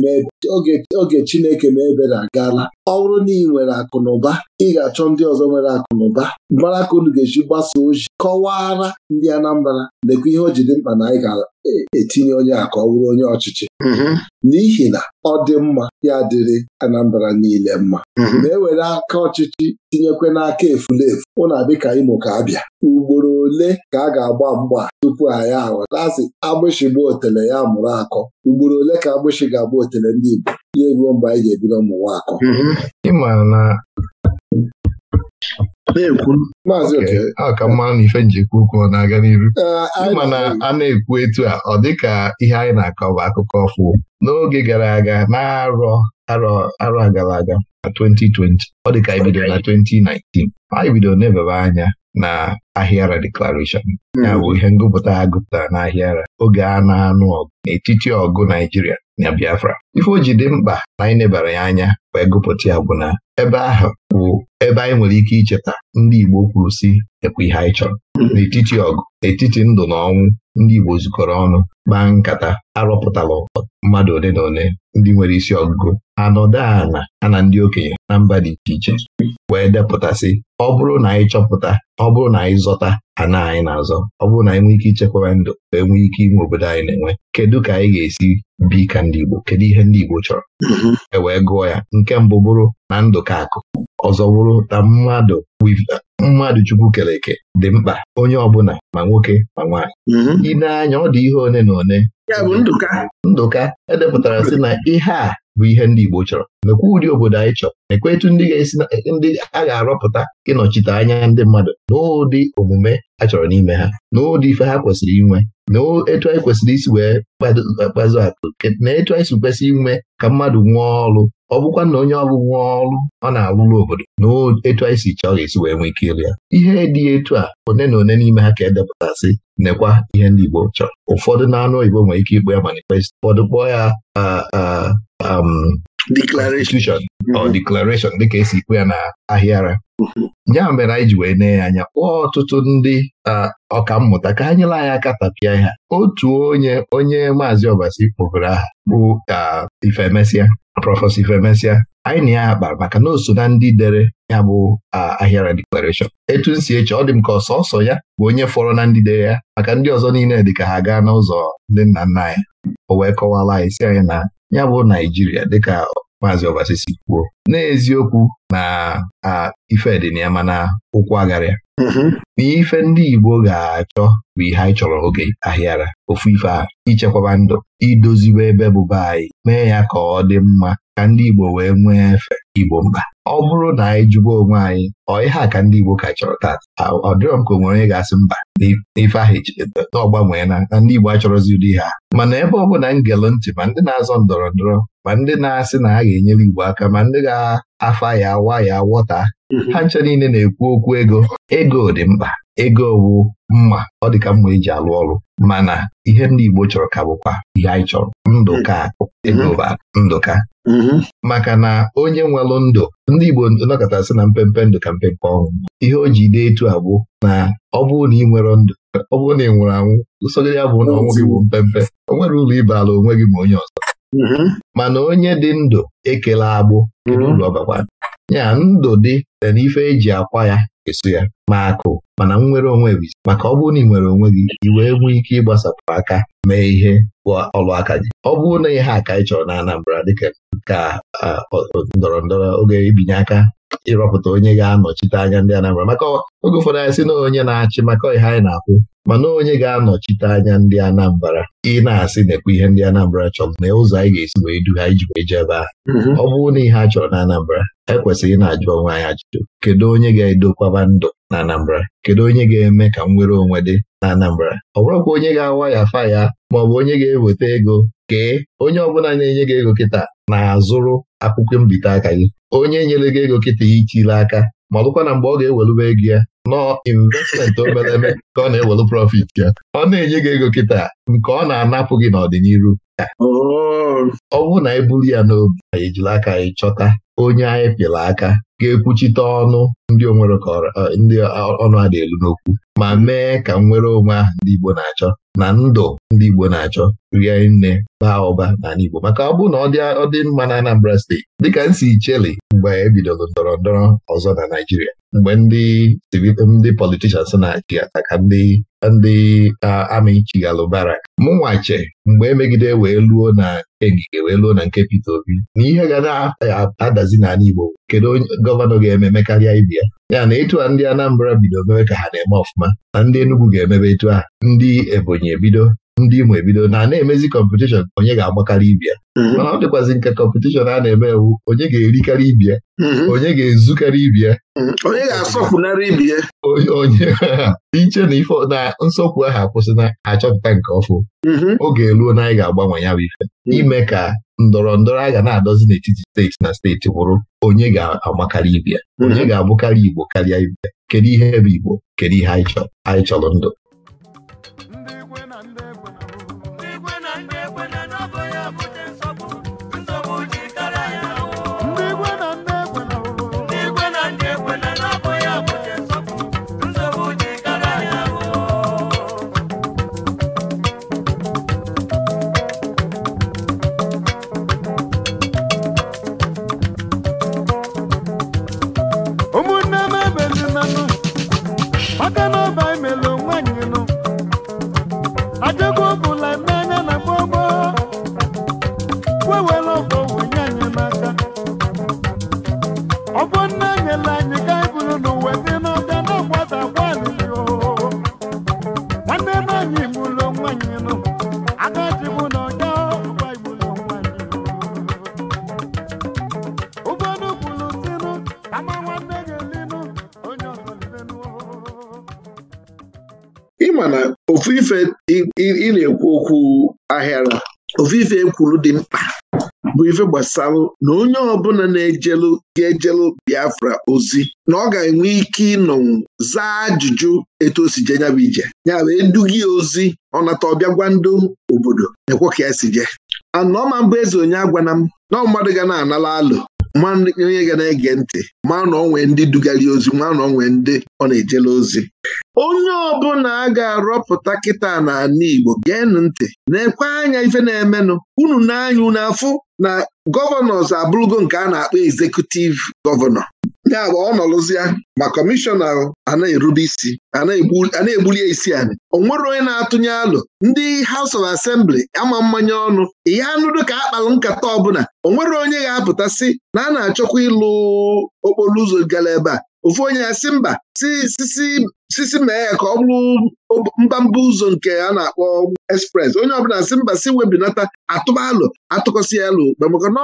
oge Chineke na ebere agaala ọ bụrụ na ị nwere akụnụba ị ga-achọ ndị ọzọ nwere akụnụba. ụba mara ka unu ga-eji gbasa ozi kọwara ndị Anambra lekwa ihe o ji dị mkpa na anyị ga-etinye onye a ka ọ bụrụ onye ọchịchị mm-hmm. n'ihi na ọ dị mma ya dịrị Anambra niile mma ma mm-hmm. e were aka ọchịchị tinyekwe n'aka efulefu ụna ka Imo ka abịa ugboro ole ka a ga-agba mgba tupu anyị aghọta asị agbịshị gba otele ya mụrụ akọ ugboro ole ka agbịshị ga-agba otele ndị Igbo ya eruo mgbe anyị ga-ebido akọ mhm. na ife njikwa ọ na-aga n'iru ịma na a na-ekwu etu a ọ dịka ihe anyị na-akọ bụ akụkọ ọfụ n'oge gara aga na-arọ arọ gara aga na 2020 ọ dịka ka bidoro na 2019 anyị bido na-ebebe anya na ahịara declaration mhm. ya bụ ihe ngụpụta ha gụpụtara n'ahịara oge a na-anụ ọgụ n'etiti ọgụ Naijiria na Biafra ife o ji dị mkpa na anyị nebara ya anya wee gụpụta ya bụ na ebe ahụ bụ ebe anyị nwere ike icheta ndị Igbo kwuru si ekwe ihe anyị chọrọ mm-hmm. n'etiti ọgụ etiti ndụ na ọnwụ ndị Igbo zukọrọ ọnụ kpaa nkata arụpụtala mmadụ ole na ole ndị nwere isi ọgụgụ ala a na ndị okenye na mba dị iche iche wee depụtasị ọ bụrụ na anyị chọpụta ọ bụrụ na anyị zọta ana anyị na-azọ ọ bụrụ na anyị nwee ike ichekwara ndụ wee nwee ike inwe obodo anyị na-enwe kedu ka anyị ga-esi bi ka ndị Igbo kedu ihe ndị Igbo chọrọ mm-hmm. e wee gụọ ya nke mbụ bụrụ na ndụ ka akụ ọzọ wụrụ na mmadụ mmadụ Chukwu kere dị mkpa onye ọbụla ma nwoke ma nwaanyị mhm. ị na-anya ọ dị ihe one na one Ndụka edepụtara si na ihe a bụ ihe ndị Igbo chọrọ mekwa ụdị obodo anyị chọrọ mekwa ndị ga-esi ndị a ga-arọpụta ịnọchite anya ndị mmadụ n'ụdị omume a chọrọ n'ime ha n'ụdị ife ha kwesịrị inwe na etu anyị kwesịrị isi wee kpazụ atụ na etu anyị si kwesị inwe ka mmadụ nwee ọrụ ọ bụkwa na onye ọrụ nwee ọrụ ọ na-alụrụ obodo na etu anyị si chọọ ga-esi wee nwee ike ya ihe dị etu a one na one n'ime ha ka edepụtasị nekwa ihe ndị Igbo chọrọ ụfọdụ na anụ oyibo nwere ike ikpe ya manifest ụfọdụ kpọọ ya um, declaration ọ mm-hmm. declaration dịka esi ikwu ya na ahịara mm-hmm. ya mere anyị ji wee nee ya anya kpọọ ọtụtụ ndị ọkammụta ka ha nyere anyị aka tapịa ha otu onye onye maazị ọbasi kpọbere aha bụ ifemesia prọfesọ ifemesia anyị na ya akpara maka na o so na ndị dere ya bụ ahịara declaration. etu nsi eche ọ dị m ka ọsọsọ ya bụ onye fọrọ na ndị dere ya maka ndị ọzọ niile dịka ka ha gaa n'ụzọ ndị nna nna ya. o wee kọwala anyị si anyị na ya bụ Naijiria dịka maazị Obasisi kwuo n'eziokwu na ife dị na ya mana ụkwụ agarịa mm-hmm. na ife ndị Igbo ga-achọ bụ ihe anyị chọrọ oge ahịara ofu ife a ichekwaba ndụ idozibe ebe bụba anyị mee ya ka ọ dị mma ka ndị Igbo wee nwee efe Igbo mkpa ọ bụrụ na anyị jụba onwe anyị ọ ihe a ka ndị Igbo ka chọrọ taa ọ dịrọ m ka o nwere onye ga-asị mba n'ife ahụ na ọgbanwee na ndị Igbo achọrọzi ụdị ha mana ebe ọ bụla ngelu ntị ma ndị na-azọ ndọrọ ndọrọ ma ndị na-asị na a ga-enyere Igbo aka ma ndị ga-afa ya awa ya wọta mhm. ha ncha niile na-ekwu okwu ego ego dị mkpa ego bụ mma ọ dị ka mma eji alụ ọrụ mana ihe ndị Igbo chọrọ ka bụkwa ihe anyị chọrọ ndụka egoba mhm. ndụka mhm. maka na onye nwelụ ndụ ndị Igbo nọkọtasị na mpempe ndụ ka mpempe ọnwụ ihe o ji dee etu abụ na ọ bụrụ na ị nwere ndụ ọ bụrụ na ị nwụrụ anwụ ụsogide ya bụ na ọnwụ gị bụ mpempe o nwere ụlọ ala onwe gị ma onye ọzọ Mhm. mana onye dị ndụ ekele agbụ mhm. ya ndụ dị na n'ife eji akwa ya eso ya ma akụ mana nwere onwe gị maka ọ bụrụ na ị nwere onwe gị iwe wee nwee ike ịgbasapụ aka mee ihe bụ ọlụ aka gị ọ bụrụ na ihe aka ị chọrọ na Anambra dịka ka ndọrọ ndọrọ oge ibinye aka ịrọpụta onye ga-anọchite anya ndị Anambra maka oge ụfọdụ anyị sị na onye na-achị maka ihe anyị na-akwụ mana onye ga-anọchite anya ndị Anambra ị na-asị na-ekwu ihe ndị Anambra chọrọ na ụzọ anyị ga-esi wee du ha iji wee jebe ha mm-hmm. ọ bụrụ na ihe a chọrọ na Anambra ekwesịghị na-ajụ onwe anyị ajụjụ kedu onye ga-edokwaba ndụ na Anambra kedu onye ga-eme ka nwere onwe dị na Anambra ọ bụrụkwa onye ga-awa ya fa ya maọbụ onye ga-eweta ego kee onye ọbụla na-enye gị ego kịta na-azụrụ akwụkwọ mbite aka gị onye nyere gị ego kịta ichile aka ma ọ na mgbe ọ ga-ewelube ego ya nọọ investment obere ka ọ na-ewelu profit ya ọ na-enye gị ego kịta nke ọ na-anapụ gị n'ọdịnihu oh. ọ bụrụ na buru ya n'obi anyị aka ị chọta onye anyị pịara aka ga-ekwuchite ọnụ ndị onwere ndị ọnụ a elu n'okwu ma mee ka nnwere onwe ahụ ndị Igbo na-achọ na ndụ ndị Igbo na-achọ rie nne baa ụba n'ala Igbo maka ọ bụrụ na ọ dị mma na Anambra steeti dịka nsi Icheli mgbe ebidoro ndọrọ ndọrọ ọzọ na Naijiria mgbe ndị politishans na-achị ata ka ndị ndị amị chighalụ barak mụnwache mgbe emegide wee luo na egige wee luo na nke Peter Obi na ihe ga na-adazi nhazi n'ala Igbo kedu onye gọvanọ ga-ememe karịa ibe ya ya na ịtụ a ndị Anambra bido mewe ka ha na-eme ọfụma na ndị Enugu ga-emebe etu a, ndị Ebonyi ebido ndị Imo ebido na na-emezi kọmpetishọn onye ga-agbakarị ibia mhm. mana ọ dịkwazị nke kọmpetishọn a na-eme ewu onye ga-erikarị ibia mhm. onye ga-ezukarị ibia mhm. onye ga-asọpụnara ibia onye iche na ife na nsọpụ ahụ akwụsị na achọpụta nke ọfụ oge eluo na anyị ga-agbanwe ya bụ ife ime ka ndọrọ ndọrọ a ga na-adọzi n'etiti steeti na steeti bụrụ onye ga agbakarị ibia onye ga-abụkarị Igbo karịa ibia kedu ihe bụ Igbo kedu ihe anyị chọrọ ndụ kwuru dị mkpa bụ ife gbasara na onye ọbụla na-ejelu ga-ejelu Biafra ozi na ọ ga-enwe ike ịnọnwụ zaa ajụjụ etu o si je nyabụ ije ya wee gị ozi ọnata ọbịa gwa ndụ obodo na-ekwe ka ya si je anọọma mbụ eze onye agwana m na mmadụ ga na-anala alụ ma onye ga na-ege ntị ma na onwe ndị dugali ozi ma na onwe ndị ọ na-ejela ozi onye ọbụla a ga-arọpụta kịta n'ala Igbo geenụ ntị na-ekwe anya ife na-emenụ unu n'anya unu afụ na gọvanọs abụrụgo nke a na-akpọ ezekutiv gọvanọ ya bụ ọ nọlụzịa ma kọmishọna na erube isi na egbuli isi a o nwere onye na-atụnye alụ ndị House of Assembly ama mmanya ọnụ ihe anụdụ ka akpalụ nkata ọbụla o nwere onye ga-apụta sị na a na-achọkwa ịlụ okporo ụzọ gara ebe a ofu onye ya si mba sisi mee ya ka ọ bụrụ mbamba ụzọ nke a na-akpọ express onye ọbụla si mba si webinata atụba alụ atụkọsị alụ maka na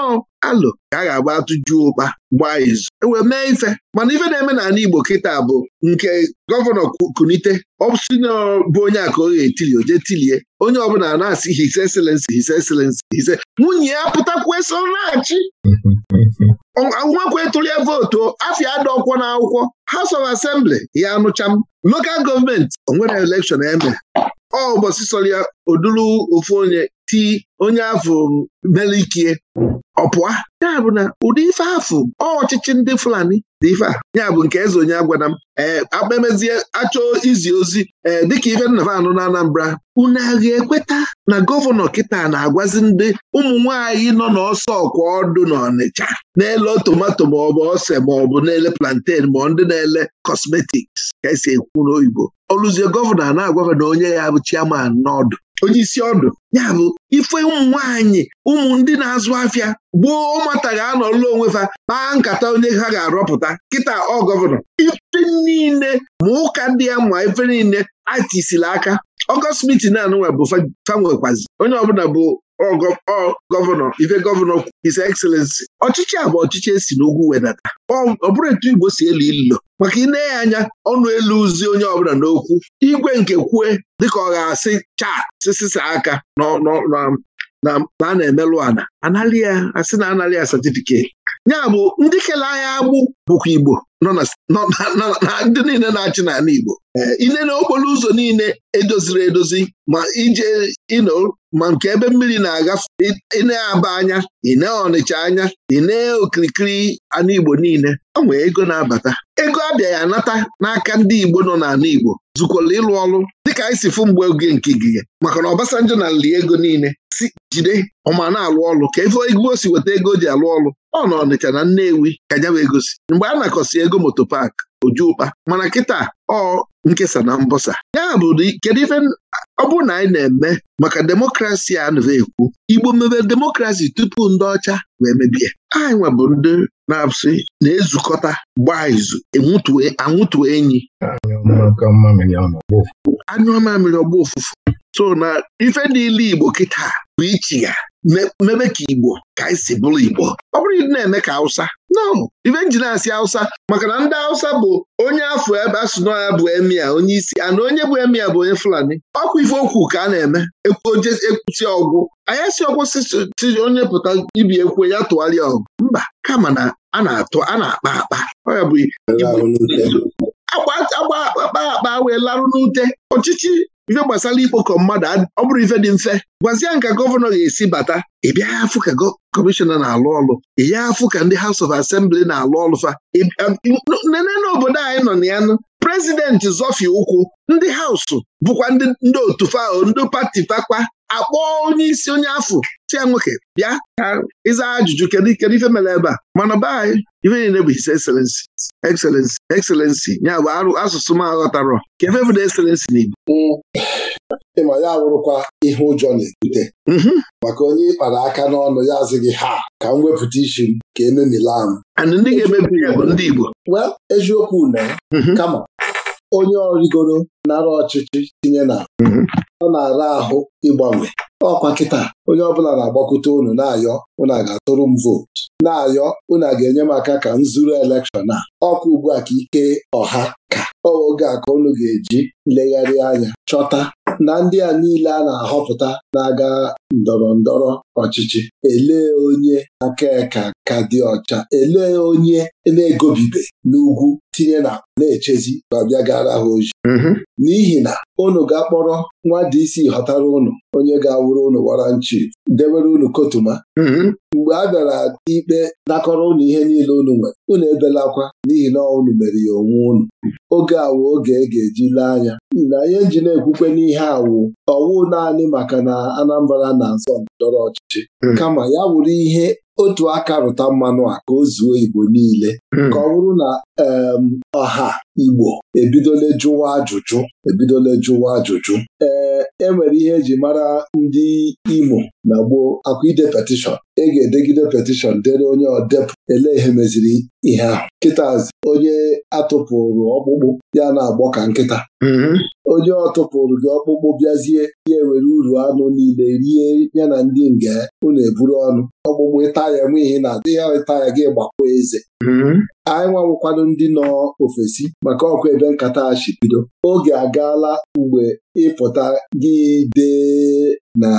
alụ ka a ga-agba atụjuo ụkpa gba izu ewee mee ife mana ife na-eme ana Igbo kịta bụ nke gọvanọ kunite ọsina bụ onye a ka ọ ga-etili o tilie onye ọbụla na-asị his excellency his excellency his nwunye ya pụtakwa eso ngwakwa etụlie vootu afia na n'akwụkwọ House of Assembly ya anụcha local lokal gọọmenti onwere elekshọn eme ọ ụbọchị sọrọ ya oduru ofu onye ti onye afọ melikie ọ pụa ya bụ na ụdị ife afụ ọchịchị ndị Fulani dị ife a ya bụ nke eze onye agwada m ee eh, akpamezie achọọ izi ozi ee eh, dịka ife nnavanụ na Anambra unu agha ekweta na gọvanọ kịta na-agwazi ndị ụmụ nọ n'ọsọ ọkwa ọdụ n'Ọnịcha na-ele tomato maọbụ ọse maọbụ na-ele plantain ma ndị na-ele cosmetics ka esi ekwu n'oyibo ọlụzie gọvanọ na-agwafe na onye ya bụ chiaman n'ọdụ onye isi ọdụ ya bụ ife ụmụ nwaanyị ụmụ ndị na-azụ afịa gboo ụmụata ga-anọlụ onwe ha kpaa nkata onye ha ga-arọpụta kịta ọ gọvanọ ife niile ma ụka ndị ya ma ife niile atisila aka ọgọst na anụnwa bụ fanwekwazi onye ọbụla bụ gọvanọ ife gọvanọ His Excellency ọchịchị a bụ ọchịchị esi n'ugwu wedata ọ bụrụ etu Igbo si elu ilo maka na-enye anya ọnụ elu uzi onye ọbụla n'okwu igwe nke kwue dịka ọ ga-asị chaa sisisa aka na a na-emelụ ana analị ya asị na analị ya ya bụ ndị kele anya agbụ bụkwa Igbo nọ ndị niile na-achị n'ala Igbo eh, ile n'okporo ụzọ niile edoziri edozi ma ije ino ma nke ebe mmiri na aga ine aba anya ine Ọnịcha anya ine okirikiri Anigbo niile ọ nwee ego na-abata ego abịaghị anata n'aka ndị Igbo nọ n'ala Igbo zụkwala ịlụ ọrụ dịka anyị si fụ mgbe oge nke gige maka na Obasanjo na nli ego niile si jide ọma na-alụ ọrụ ka efe Igbo si weta ego o ji alụ ọrụ ọ nọ Ọnịcha na Nnewi ka nyaba egosi mgbe a na-akọsi ego moto pak ojuụkpa mana kịta ọ nkesa na mbọsa ya bụ kedu ife ọ bụrụ na anyị na-eme maka demokrasi a na-ekwu Igbo mebe demokrasi tupu ndị ọcha wee mebie anyị nwebụ ndị na-asị na-ezukọta gbaa izu anwụtuo enyi anyụọ mamịrị ọgba ụfụfụ so na ife niile Igbo kịta bụ ichi ya mebe ka Igbo ka anyị si bụrụ Igbo ọ bụrụ ịdị na-eme ka Hausa no ife nji na-asị Hausa maka na ndị Hausa bụ onye afọ ebe ya bụ emia onye isi ana onye bụ emia bụ onye Fulani ọkwa ife okwu ka a na-eme ekwusi ọgwụ Anyị si ọgwụ si onye pụta ibi ekwe ya tụgharịa ọgụ mba kama na a na-atụ a na-akpa akpa ọ ya bụ akpa akpa wee larụ n'ute ọchịchị ife gbasara ikpokọ mmadụ ọ bụrụ ife dị mfe gwazie nka gọvanọ ga-esi bata ị bịa afụ ka kọmishọna na-alụ ọlụ ị ya afụ ka ndị House of Assembly na-alụ ọlụ fa um, nene obodo anyị nọ na ya prezidenti Zofie ụkwụ ndị hausụ bụkwa ndị otu fao ndị pati fakpa akpọ onye isi onye afọ tia nwoke bịa ka ịza ajụjụ kedu kedu ife mere ebe a mana be anyị ife niile bụ his excellency excellency excellency ya bụ arụ asụsụ m aghọtarọ ka efe bụ na excellency n'Igbo ịma ya wụrụkwa ihe ụjọ na-ebute mhm. maka onye ịkpara aka n'ọnụ ya azịghị ha ka m wepụta isi m ka ememila m ndị ga-emebi ya bụ ndị Igbo eziokwu na mhm. kama onye ọrịgoro nara ọchịchị tinye na mhm. ọ na-ara ahụ ịgbanwe ọkwa kịta onye ọbụla na agbakwute unu na-ayọ unu ga-atụrụ m vootu na-ayọ unu ga-enye m aka ka m zuru elekshọn a ọkwa ugbu a ka ike ọha ka oge a ka unu ga-eji legharịa anya chọta na ndị a niile a na-ahọpụta na-aga ndọrọ ndọrọ ọchịchị elee onye aka ka ka dị ọcha elee onye na-egobibe n'ugwu tinye na na-echezi ma gara ha oji mm-hmm. n'ihi na unu ga-akpọrọ nwa DC isi họtara unu onye ga-awụrụ unu waranchi debere unu kotuma mm-hmm. mgbe a bịara ikpe nakọrọ unu ihe niile unu nwere unu ebelakwa n'ihi na unu mere ya onwe unu oge awụ oge e ga-eji lee anya ị na ihe nji na-ekwukwe n'ihe awụ ọwụ naanị maka na Anambra na-asọ ndọrọ ọchịchị hmm. kama ya wụrụ ihe otu aka rụta mmanụ a ka o zuo Igbo niile hmm. ka ọ bụrụ na ọha Igbo ebidole jụwa ajụjụ ebidole jụwa ajụjụ ee e nwere ihe eji mara ndị Imo na gboo akwa ide petishọn ị e ga-edegide petishọn dere onye ọdepụ ele ihe meziri ihe ahụ kịtazi onye atụpụrụ ọkpụkpụ ya na-agbọ ka nkịta hmm. onye ọtụpụrụ gị ọkpụkpụ bịazie ya ewere uru anụ niile rie ya na ndị nge unu eburu ọnụ ọgbụgbụ ịta ya eme ihe na adịghị ịta ya gị gbakwa eze mm-hmm. anyị nwawụkwado ndị nọ ofesi maka ọkụ ebe nkata bido. oge agaala mgbe ịpụta gị dee na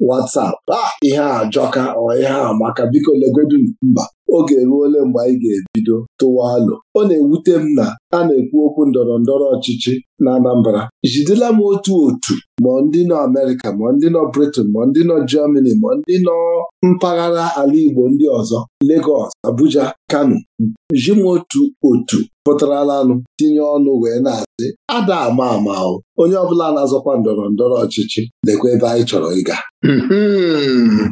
WhatsApp a ah, ihe a jọka ọ ihe a maka biko legodu mba oge ole mgbe anyị ga-ebido tụwa alụ ọ na-ewute m na a na-ekwu okwu ndọrọ ndọrọ ọchịchị na Anambra jidela m otu otu ma ndị nọ Amerịka ma ndị nọ Britain ma ndị nọ Germany ma ndị nọ mpaghara ala Igbo ndị ọzọ Lagos Abuja Kano ji m otu otu pụtarala tinye ọnụ wee na-asị ada ama ama onye ọbụla na-azọkwa ndọrọ ndọrọ ọchịchị lekwa ebe anyị chọrọ ịga hmm.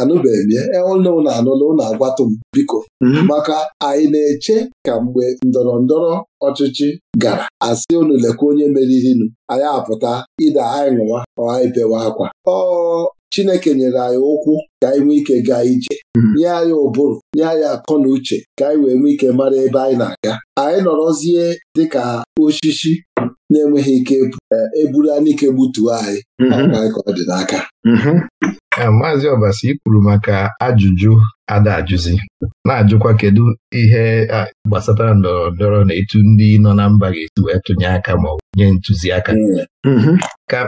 anụbeghị m e, ụlọ ụlọ anụla ụlọ agwatụ m biko hmm. maka anyị na-eche ka mgbe ndọrọ ndọrọ ọchịchị gara asị unu lekwa onye meririnụ anyị apụta ide anyị ṅụwa ọ anyị bewe akwa ọ Chineke nyere anyị ụkwụ ka anyị nwee ike gaa ije hmm. nye anyị ụbụrụ nye anyị akọ na uche ka anyị wee nwee ike mara ebe anyị na-aga anyị nọrọzie dịka osisi na-enweghị ike e, eburu anike gbutuo anyị mhm. anyị ka ọ dị n'aka mhm. maazị Ọbasi ikwuru maka ajụjụ ada ajụzi na-ajụkwa kedu ihe gbasatara ndọrọ ndọrọ na etu ndị nọ na mba ga-esi wee tụnye aka ma ọ bụ nye ntụziaka mm-hmm.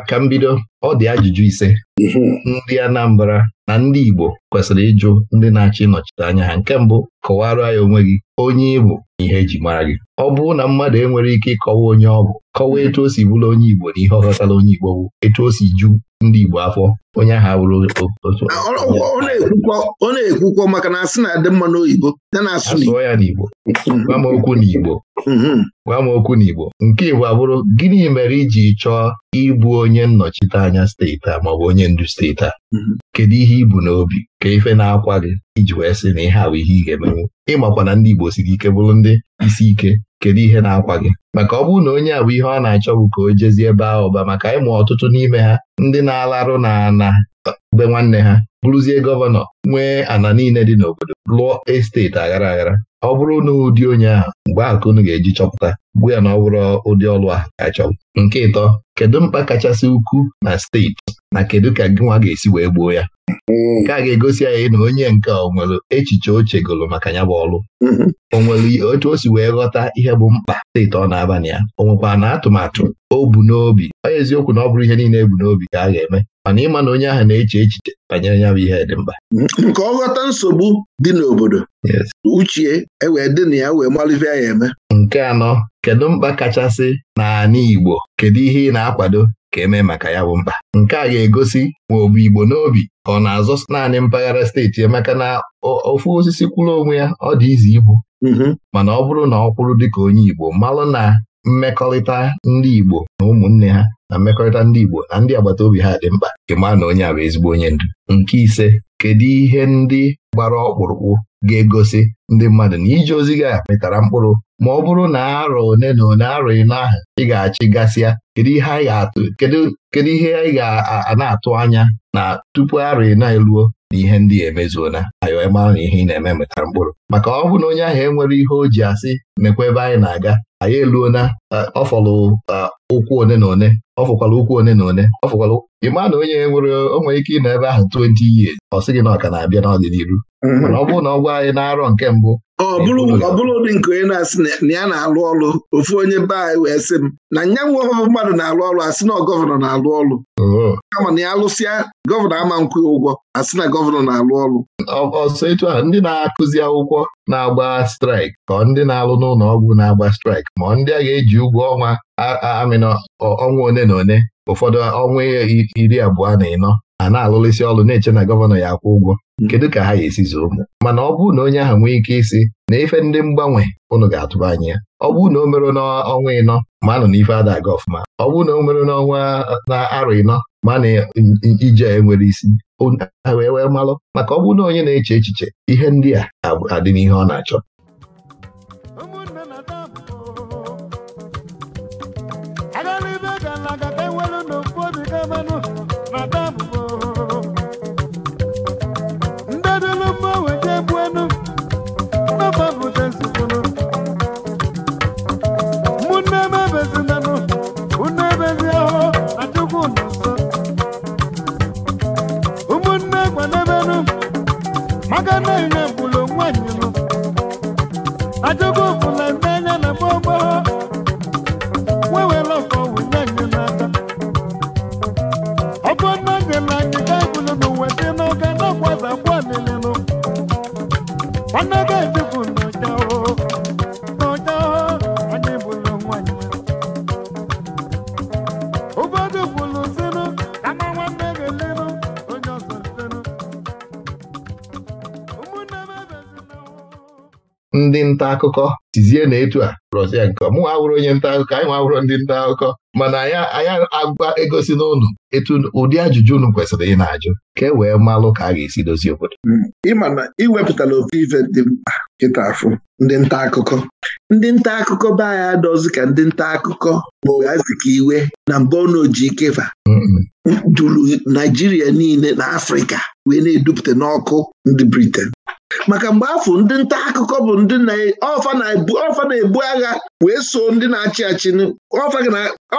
ka mbido ọ dị ajụjụ ise mm-hmm. ndị Anambra na ndị Igbo kwesịrị ịjụ ndị na-achọ ịnọchite anya ha nke mbụ kọwara ya onwe gị onye igbo na ihe eji mara gị ọ bụrụ na mmadụ enwere ike ịkọwa onye ọ bụ kọwaa etu o si bụrụ onye Igbo na ihe ọ ghọtara onye Igbo bụ etu o si ju ndị Igbo afọ onye ahụ abụrụ ọ na-ekwukwọ maka na asị na-adị mma n'oyibo asụọ ya n'Igbo gwa m okwu n'Igbo mm-hmm. gwa m okwu n'Igbo nke Igbo abụrụ gịnị mere iji chọọ ịbụ onye nnọchite anya steeti a maọbụ onye ndu steeti a mm-hmm. kedu ihe ibu n'obi ka ife na-akwa gị iji wee sị na ihe awụ ihe ị ga-emenwu ịmakwa na ndị Igbo siri ike bụrụ ndị isi ike kedu ihe na-akwa gị maka ọ bụrụ na onye a bụ ihe ọ na-achọ bụ ka o jezie ebe ahụ ọba maka ịmụ ọtụtụ n'ime ha ndị na-alarụ na na be nwanne ha bụrụzie gọvanọ nwee ana niile dị n'obodo lụọ esteti aghara aghara ọ bụrụ na ụdị onye ahụ mgbe ahụ ka unu ga-eji chọpụta gwa ya na ọ bụrụ ụdị ọlụ ahụ ka nke ịtọ kedu mkpa kachasị ukwuu na steeti na kedu ka gị nwa ga-esi wee gbuo ya nke a ga-egosi anyị na onye nke ọ nwere echiche o maka ya bụ ọlụ o nwere otu o si wee ghọta ihe bụ mkpa steeti ọ na-aba na ya o nwekwa na atụmatụ o bu n'obi Onye eziokwu na ọ bụrụ ihe niile ebu n'obi ka a ga-eme mana ịma na onye ahụ na-eche echiche banyere ya bụ ihe dị mkpa nke ọ ghọta nsogbu dị n'obodo uche ewee dị na ya wee malivia ya eme nke anọ kedu mkpa kachasị n'ala Igbo kedu ihe ị na-akwado ka eme maka ya bụ mkpa nke a ga-egosi ma ọ bụ Igbo n'obi ọ na-azọ naanị mpaghara steeti emaka na ofu osisi kwụrụ onwe ya ọ dị ize ibu mhm. mana ọ bụrụ na ọ kwụrụ dịka onye Igbo malụ na mmekọrịta ndị Igbo na ụmụnne ha na mmekọrịta ndị Igbo na ndị agbata obi ha dị mkpa nke maa na onye a bụ ezigbo onye ndu nke ise kedu ihe ndị gbara ọkpụrụkpụ ga-egosi ndị mmadụ na ije ozi gị mịtara mkpụrụ ma ọ bụrụ na arọ one na one arọ ịnọ ahụ ị ga-achị gasịa kedu ihe anyị ga-atụ kedu ihe anyị ga-ana-atụ anya na tupu arọ na eluo na ihe ndị emezuona anyị mara na ihe ị na-eme metara mkpụrụ maka ọ bụ na onye ahụ enwere ihe o ji asị mekwa ebe anyị na-aga anyị eluona ọ fọlụ ụkwụ one na one ọ ụkwụ one na one ọ fọkwala na onye nwere onwe ike ịnọ ebe ahụ 20 years ọ sị gị na ọ ka na-abịa n'ọdịnihu mm-hmm. mana ọ bụrụ na ọ anyị na arọ nke mbụ ọ bụrụ ụdị nke onye na-asị na ya na-alụ ọrụ ofu onye be anyị wee sị m na nya nwe mmadụ na-alụ ọrụ asị oh. na gọvanọ na-alụ ọrụ ma na ya lụsịa gọvanọ ama nkwụ ụgwọ asị na gọvanọ na-alụ ọrụ ọsọ etu a ndị na-akụzi akwụkwọ na-agba straik ka ndị na-alụ n'ụlọ ọgwụ na-agba straik ma ndị a ga-eji ụgwọ ọnwa amịnọ ọnwa one na one ụfọdụ ọnwa iri abụọ na ịnọ a na isi ọrụ na-eche na gọvanọ ya akwụ ụgwọ mm. kedu ka ha ga-esi zụrụ ụmụ mana ọ bụrụ na onye ahụ nwee ike isi na ife ndị mgbanwe ụnụ ga-atụba anya ya ọ bụrụ na o mere n'ọnwa ịnọ ma anọ n'ife ada aga ọfụma ọ bụrụ na o mere n'ọnwa na arọ ịnọ ma na ije enwere isi wee wee malụ maka ọ bụrụ na onye na-eche echiche ihe ndị a adị n'ihe ọ na-achọ ndị nta akụkọ tizie na etu a rọzi ya nke mụ awụrụ onye nta akụkọ anyị nwawụrụ ndị nta akụkọ mana anyị agwa egosi n'ụlọ etu ụdị ajụjụ unu kwesịrị ị na-ajụ ka e wee malụ ka a ga-esi dozie obodo hmm. ịma na iwepụtala ofe ife dị mkpa kịta afụ ndị nta akụkọ ndị nta akụkọ be anya adọzi ka ndị nta akụkọ ma iwe na mba ọnaoji ikeva duru Naijiria niile na Afrịka wee na-edupụta n'ọkụ ndị Briten maka mgbe afọ ndị nta akụkọ bụ ndị e, ọfa na-ebu agha wee so ndị na-achị achị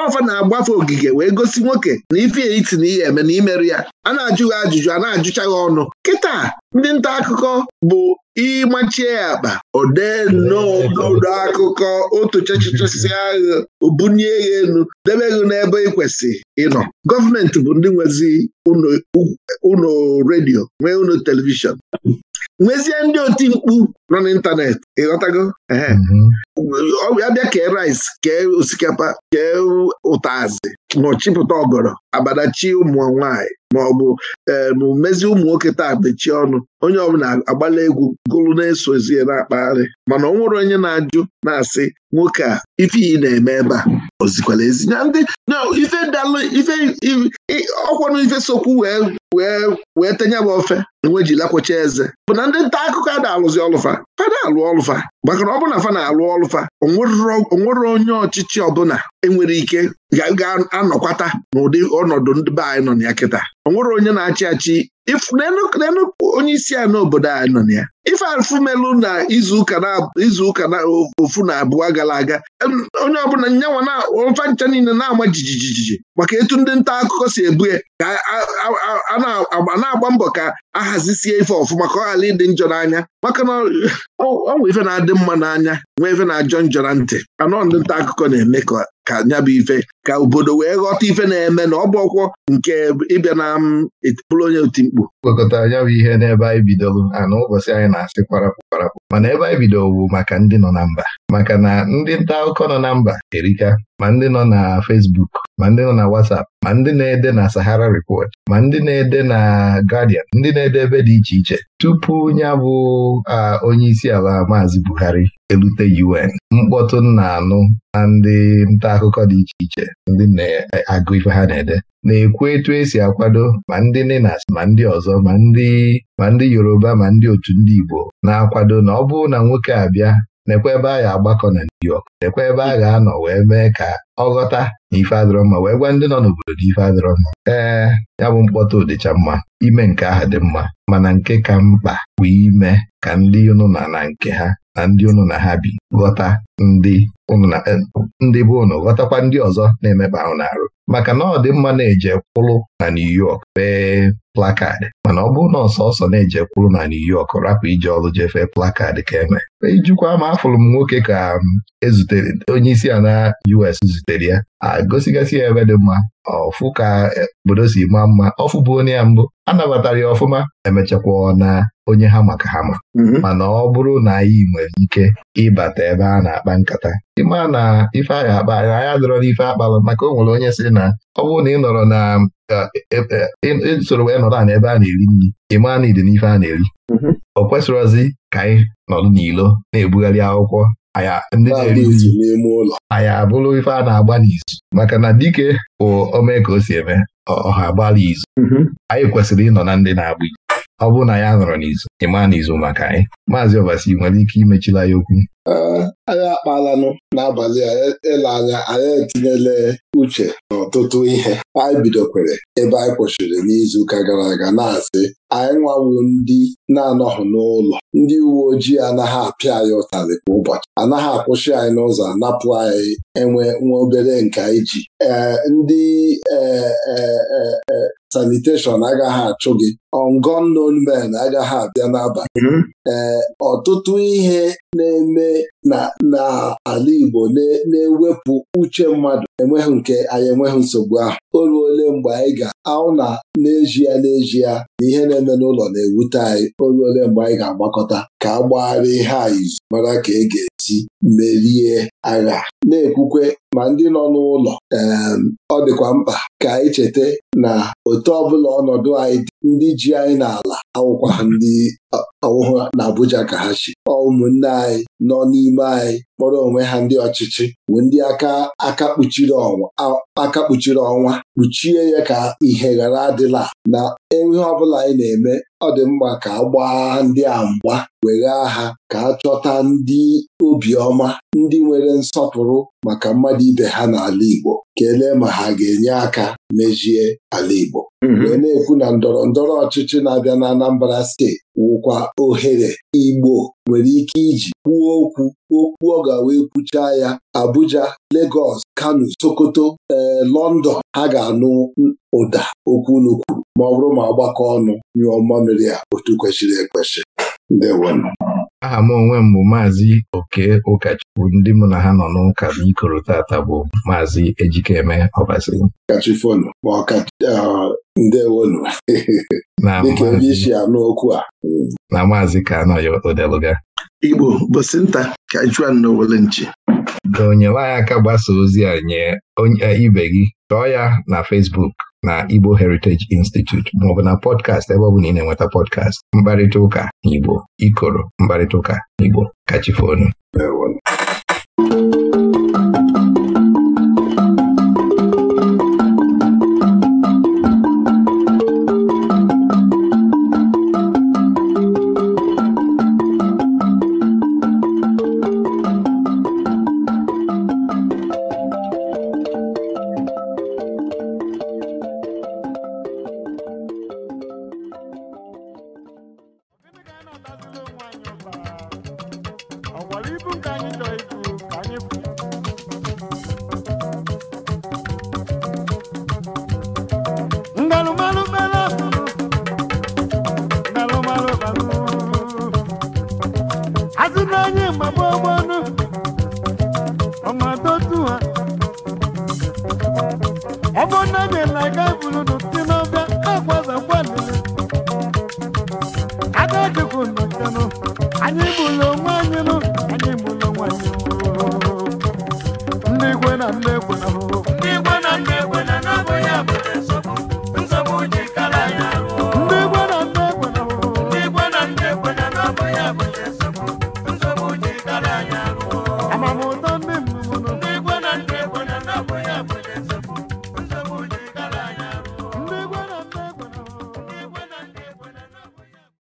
ọfa na-agbafe ogige wee gosi nwoke na ife iti na ihe eme na imerụ ya a na-ajụghị ajụjụ a na-ajụcha ọnụ kịta ndị nta akụkọ bụ ịmachie ya akpa odee nnọọ n'odo akụkọ otu chechichesi agha obunye ya elu debe gị n'ebe ị kwesị ịnọ gọọmenti bụ ndị nwezi ụlọ redio nwee ụlọ telivishọn nwezie ndị oti mkpu nọ n'ịntanetị ịghọtago ya mhm. bịa kee rice kee osikapa kee ụtazị nọchipụta ọgọrọ abadachi ụmụ nwaanyị ma ọ bụ eh, ụmụ nwoke taa mechie ọnụ onye ọbụla agbala egwu gụrụ na-esozie na-akpagharị mana ọ nwere onye na-ajụ na-asị nwoke a ife ị na-eme ebe a ozikwala ezi ndị ife dalụ ife ọkwanụ ife sokwu wee wee wee tenye m ofe enwe ji lakwocha eze bụ na ndị nta akụkọ a na-alụzi ọlụfa fa alụ ọlụfa maka ọ bụ na fa na-alụ ọlụfa onwere onye ọchịchị ọbụla enwere ike ga-anọkwata n'ụdị ọnọdụ ndị be anyị nọ na ya kịta onwere onye na-achị achị n'elu onye isi a n'obodo anyị nọ na ya ife alfumelu na izuụka na ofu na abụọ gara aga onye ọbụla nyanwa na ụfa ncha niile na-ama jijijiji maka etu ndị nta akụkọ si ebu ya ka na-agba mbọ ka ahazisie ife ọfụma ka ọ ghara ịdị njọ n'anya maka na ọ nwe ife na-adị mma n'anya nwee ife na-ajọ njọ na ntị anọ ndị nta akụkọ na-eme ka ka bụ ife ka obodo wee ghọta ife na-eme na ọ bụ ọkwọ nke ịbịa na bụrụ onye otimkpu gwakọtara ya bụ ihe n'ebe anyị bidoro ana ụbọchị anyị na-asị kwarapụ kwarapụ mana ebe anyị bidoro bụ maka ndị nọ na mba maka na ndị nta akụkọ nọ na mba erika ma ndị nọ na Fesbuk, ma ndị nọ na Watsap, ma ndị na-ede na Sahara repọt ma ndị na-ede na Guardian ndị na-ede ebe dị iche iche tupu ya bụ onye isi ala maazị Buhari elute UN mkpọtụ nna anụ na ndị nta akụkọ dị iche iche ndị na-agụ e, ife ha na-ede na-ekwu etu esi akwado ma ndị Ninas ma ndị ọzọ ma ndị ma Yoruba ma ndị otu ndị Igbo na-akwado na ọ bụrụ na nwoke abịa nekwa ebe a ga-agbakọ na New York nekwa ebe a ga-anọ wee mee ka ọ ghọta na ife adịrọ wee gwa ndị nọ n'obodo na ife adịrọmma ee ya bụ mkpọta ụdịcha mma ime nke aha dị mma mana nke ka mkpa bụ ime ka ndị ụnụ na na nke ha na ndị ụnụ na ha bi ghọta ndị Eh, ndị be ụnụ ghọtakwa ndị ọzọ na-emeba ahụ na-arụ maka na ọ dị mma na-eje kwụrụ na New York fee plakad mana ọ bụ na ọsọsọ na-eje kwụrụ na New York rapụ ije ọrụ fee plakad ka eme ijikwa e ma afụrụ m nwoke ka mm, ezutere onye isi a na US zutere ya agosigasị ya ebe dị mma ọfụ ka eh, obodo si maa mma ọfụ bụ onye ya mbụ anabatara ya ọfụma emechakwa na onye ha maka ha ma mm-hmm. mana ọ bụrụ na anyị nwere ike ịbata ebe a na-akpa nkata ịma na ife a ga-akpa na anya dọrọ n'ife akpalụ maka o nwere onye si na ọ bụrụ na ị nọrọ na e, e, e, soro wee nọrọ na ebe a na-eri nri ịma na ịdị n'ife a na-eri ọ mm-hmm. kwesịrọzi ka anyị nọdụ n'ilo na-ebugharị akwụkwọ ndị na-eri anyị abụrụ ife a na-agba n'izu maka na dike bụ omee ka o si eme ọha agbala izu mm-hmm. anyị kwesịrị ịnọ na ndị na-agba izu ọ bụrụ na ya nọrọ n'izu ịma n'izu maka anyị maazị ọbasi nwere ike imechila ya okwu anyị akpalanụ n'abalị a e, ele anya anyị etinyela uche n'ọtụtụ ihe anyị bidokwere ebe anyị kwụsịrị ụka gara aga na-asị anyị nwawu ndị na-anọghị n'ụlọ ndị uwe ojii anaghị apịa anyị ụtarị kwa ụbọchị anaghị akwụsị anyị n'ụzọ napụ anyị enwe nwa obere nka iji ee ndị e, e, saniteshọn agaghị achụ gị ongonon men agaghị abịa n'abalị ee mm-hmm. ọtụtụ ihe na-eme n'ala Igbo na-ewepụ uche mmadụ enweghị nke anyị enweghị nsogbu ahụ o ole mgbe anyị ga-ahụ na n'ezie n'ezie na ihe na-eme n'ụlọ na-ewute anyị o ole mgbe anyị ga-agbakọta ka a gbagharịa ihe anyị mara ka e ga-esi merie agha na-ekwukwe ma ndị nọ n'ụlọ ọ dịkwa mkpa ka anyị cheta na otu ọbụla ọnọdụ anyị dị ndị ji anyị n'ala awụkwa ndị ọwụhụ Abuja ka ha chi ụmụnne anyị nọ n'ime anyị kpọrọ onwe ha ndị ọchịchị bụ ndị aka aka kpuchiri ọnwa aka kpuchiri ọnwa kpuchie ya ka ihe ghara adịla na ihe ọ bụla anyị na-eme ọ dị mma ka agba gbaa ndị a mgba weghaa ha ka achọta chọta ndị obiọma ndị nwere nsọpụrụ maka mmadụ ibe ha n'ala Igbo kelee ma ha ga-enye aka mejie ala Igbo mhm. wee na-ekwu na ndọrọ ndọrọ ọchịchị na-abịa na Anambra steeti wụkwa ohere Igbo nwere ike iji kwuo okwu okwu ọ ga wee ekwucha ya Abuja Legọs, Kano Sokoto ee eh, London ha ga-anụ ụda okwu unu kwuru ma ọ bụrụ ma ọgbakọ ọnụ nyụọ mmamịrị ya otu kwesịrị ekwesị ndewonụ aha m onwe m bụ maazị oke ụkọchukwu ndị mụ na ha nọ n'ụka ikoro tata bụ maazị ejikeme ọbasi ndewonu dịka onye isi anụ okwu a na maazị ka anọghị odeluga Igbo bosi nta ka juan n'owele nchi ka onyelanya aka gbasa ozi a nye eh, ibe gị chọọ ya na Facebook na Igbo Heritage Institute maọbụ na pọdkast ebe ọ bụ na ị na-enweta pọdkast mkparịta ụka n'Igbo ikoro mkparịta ụka Igbo kachifonu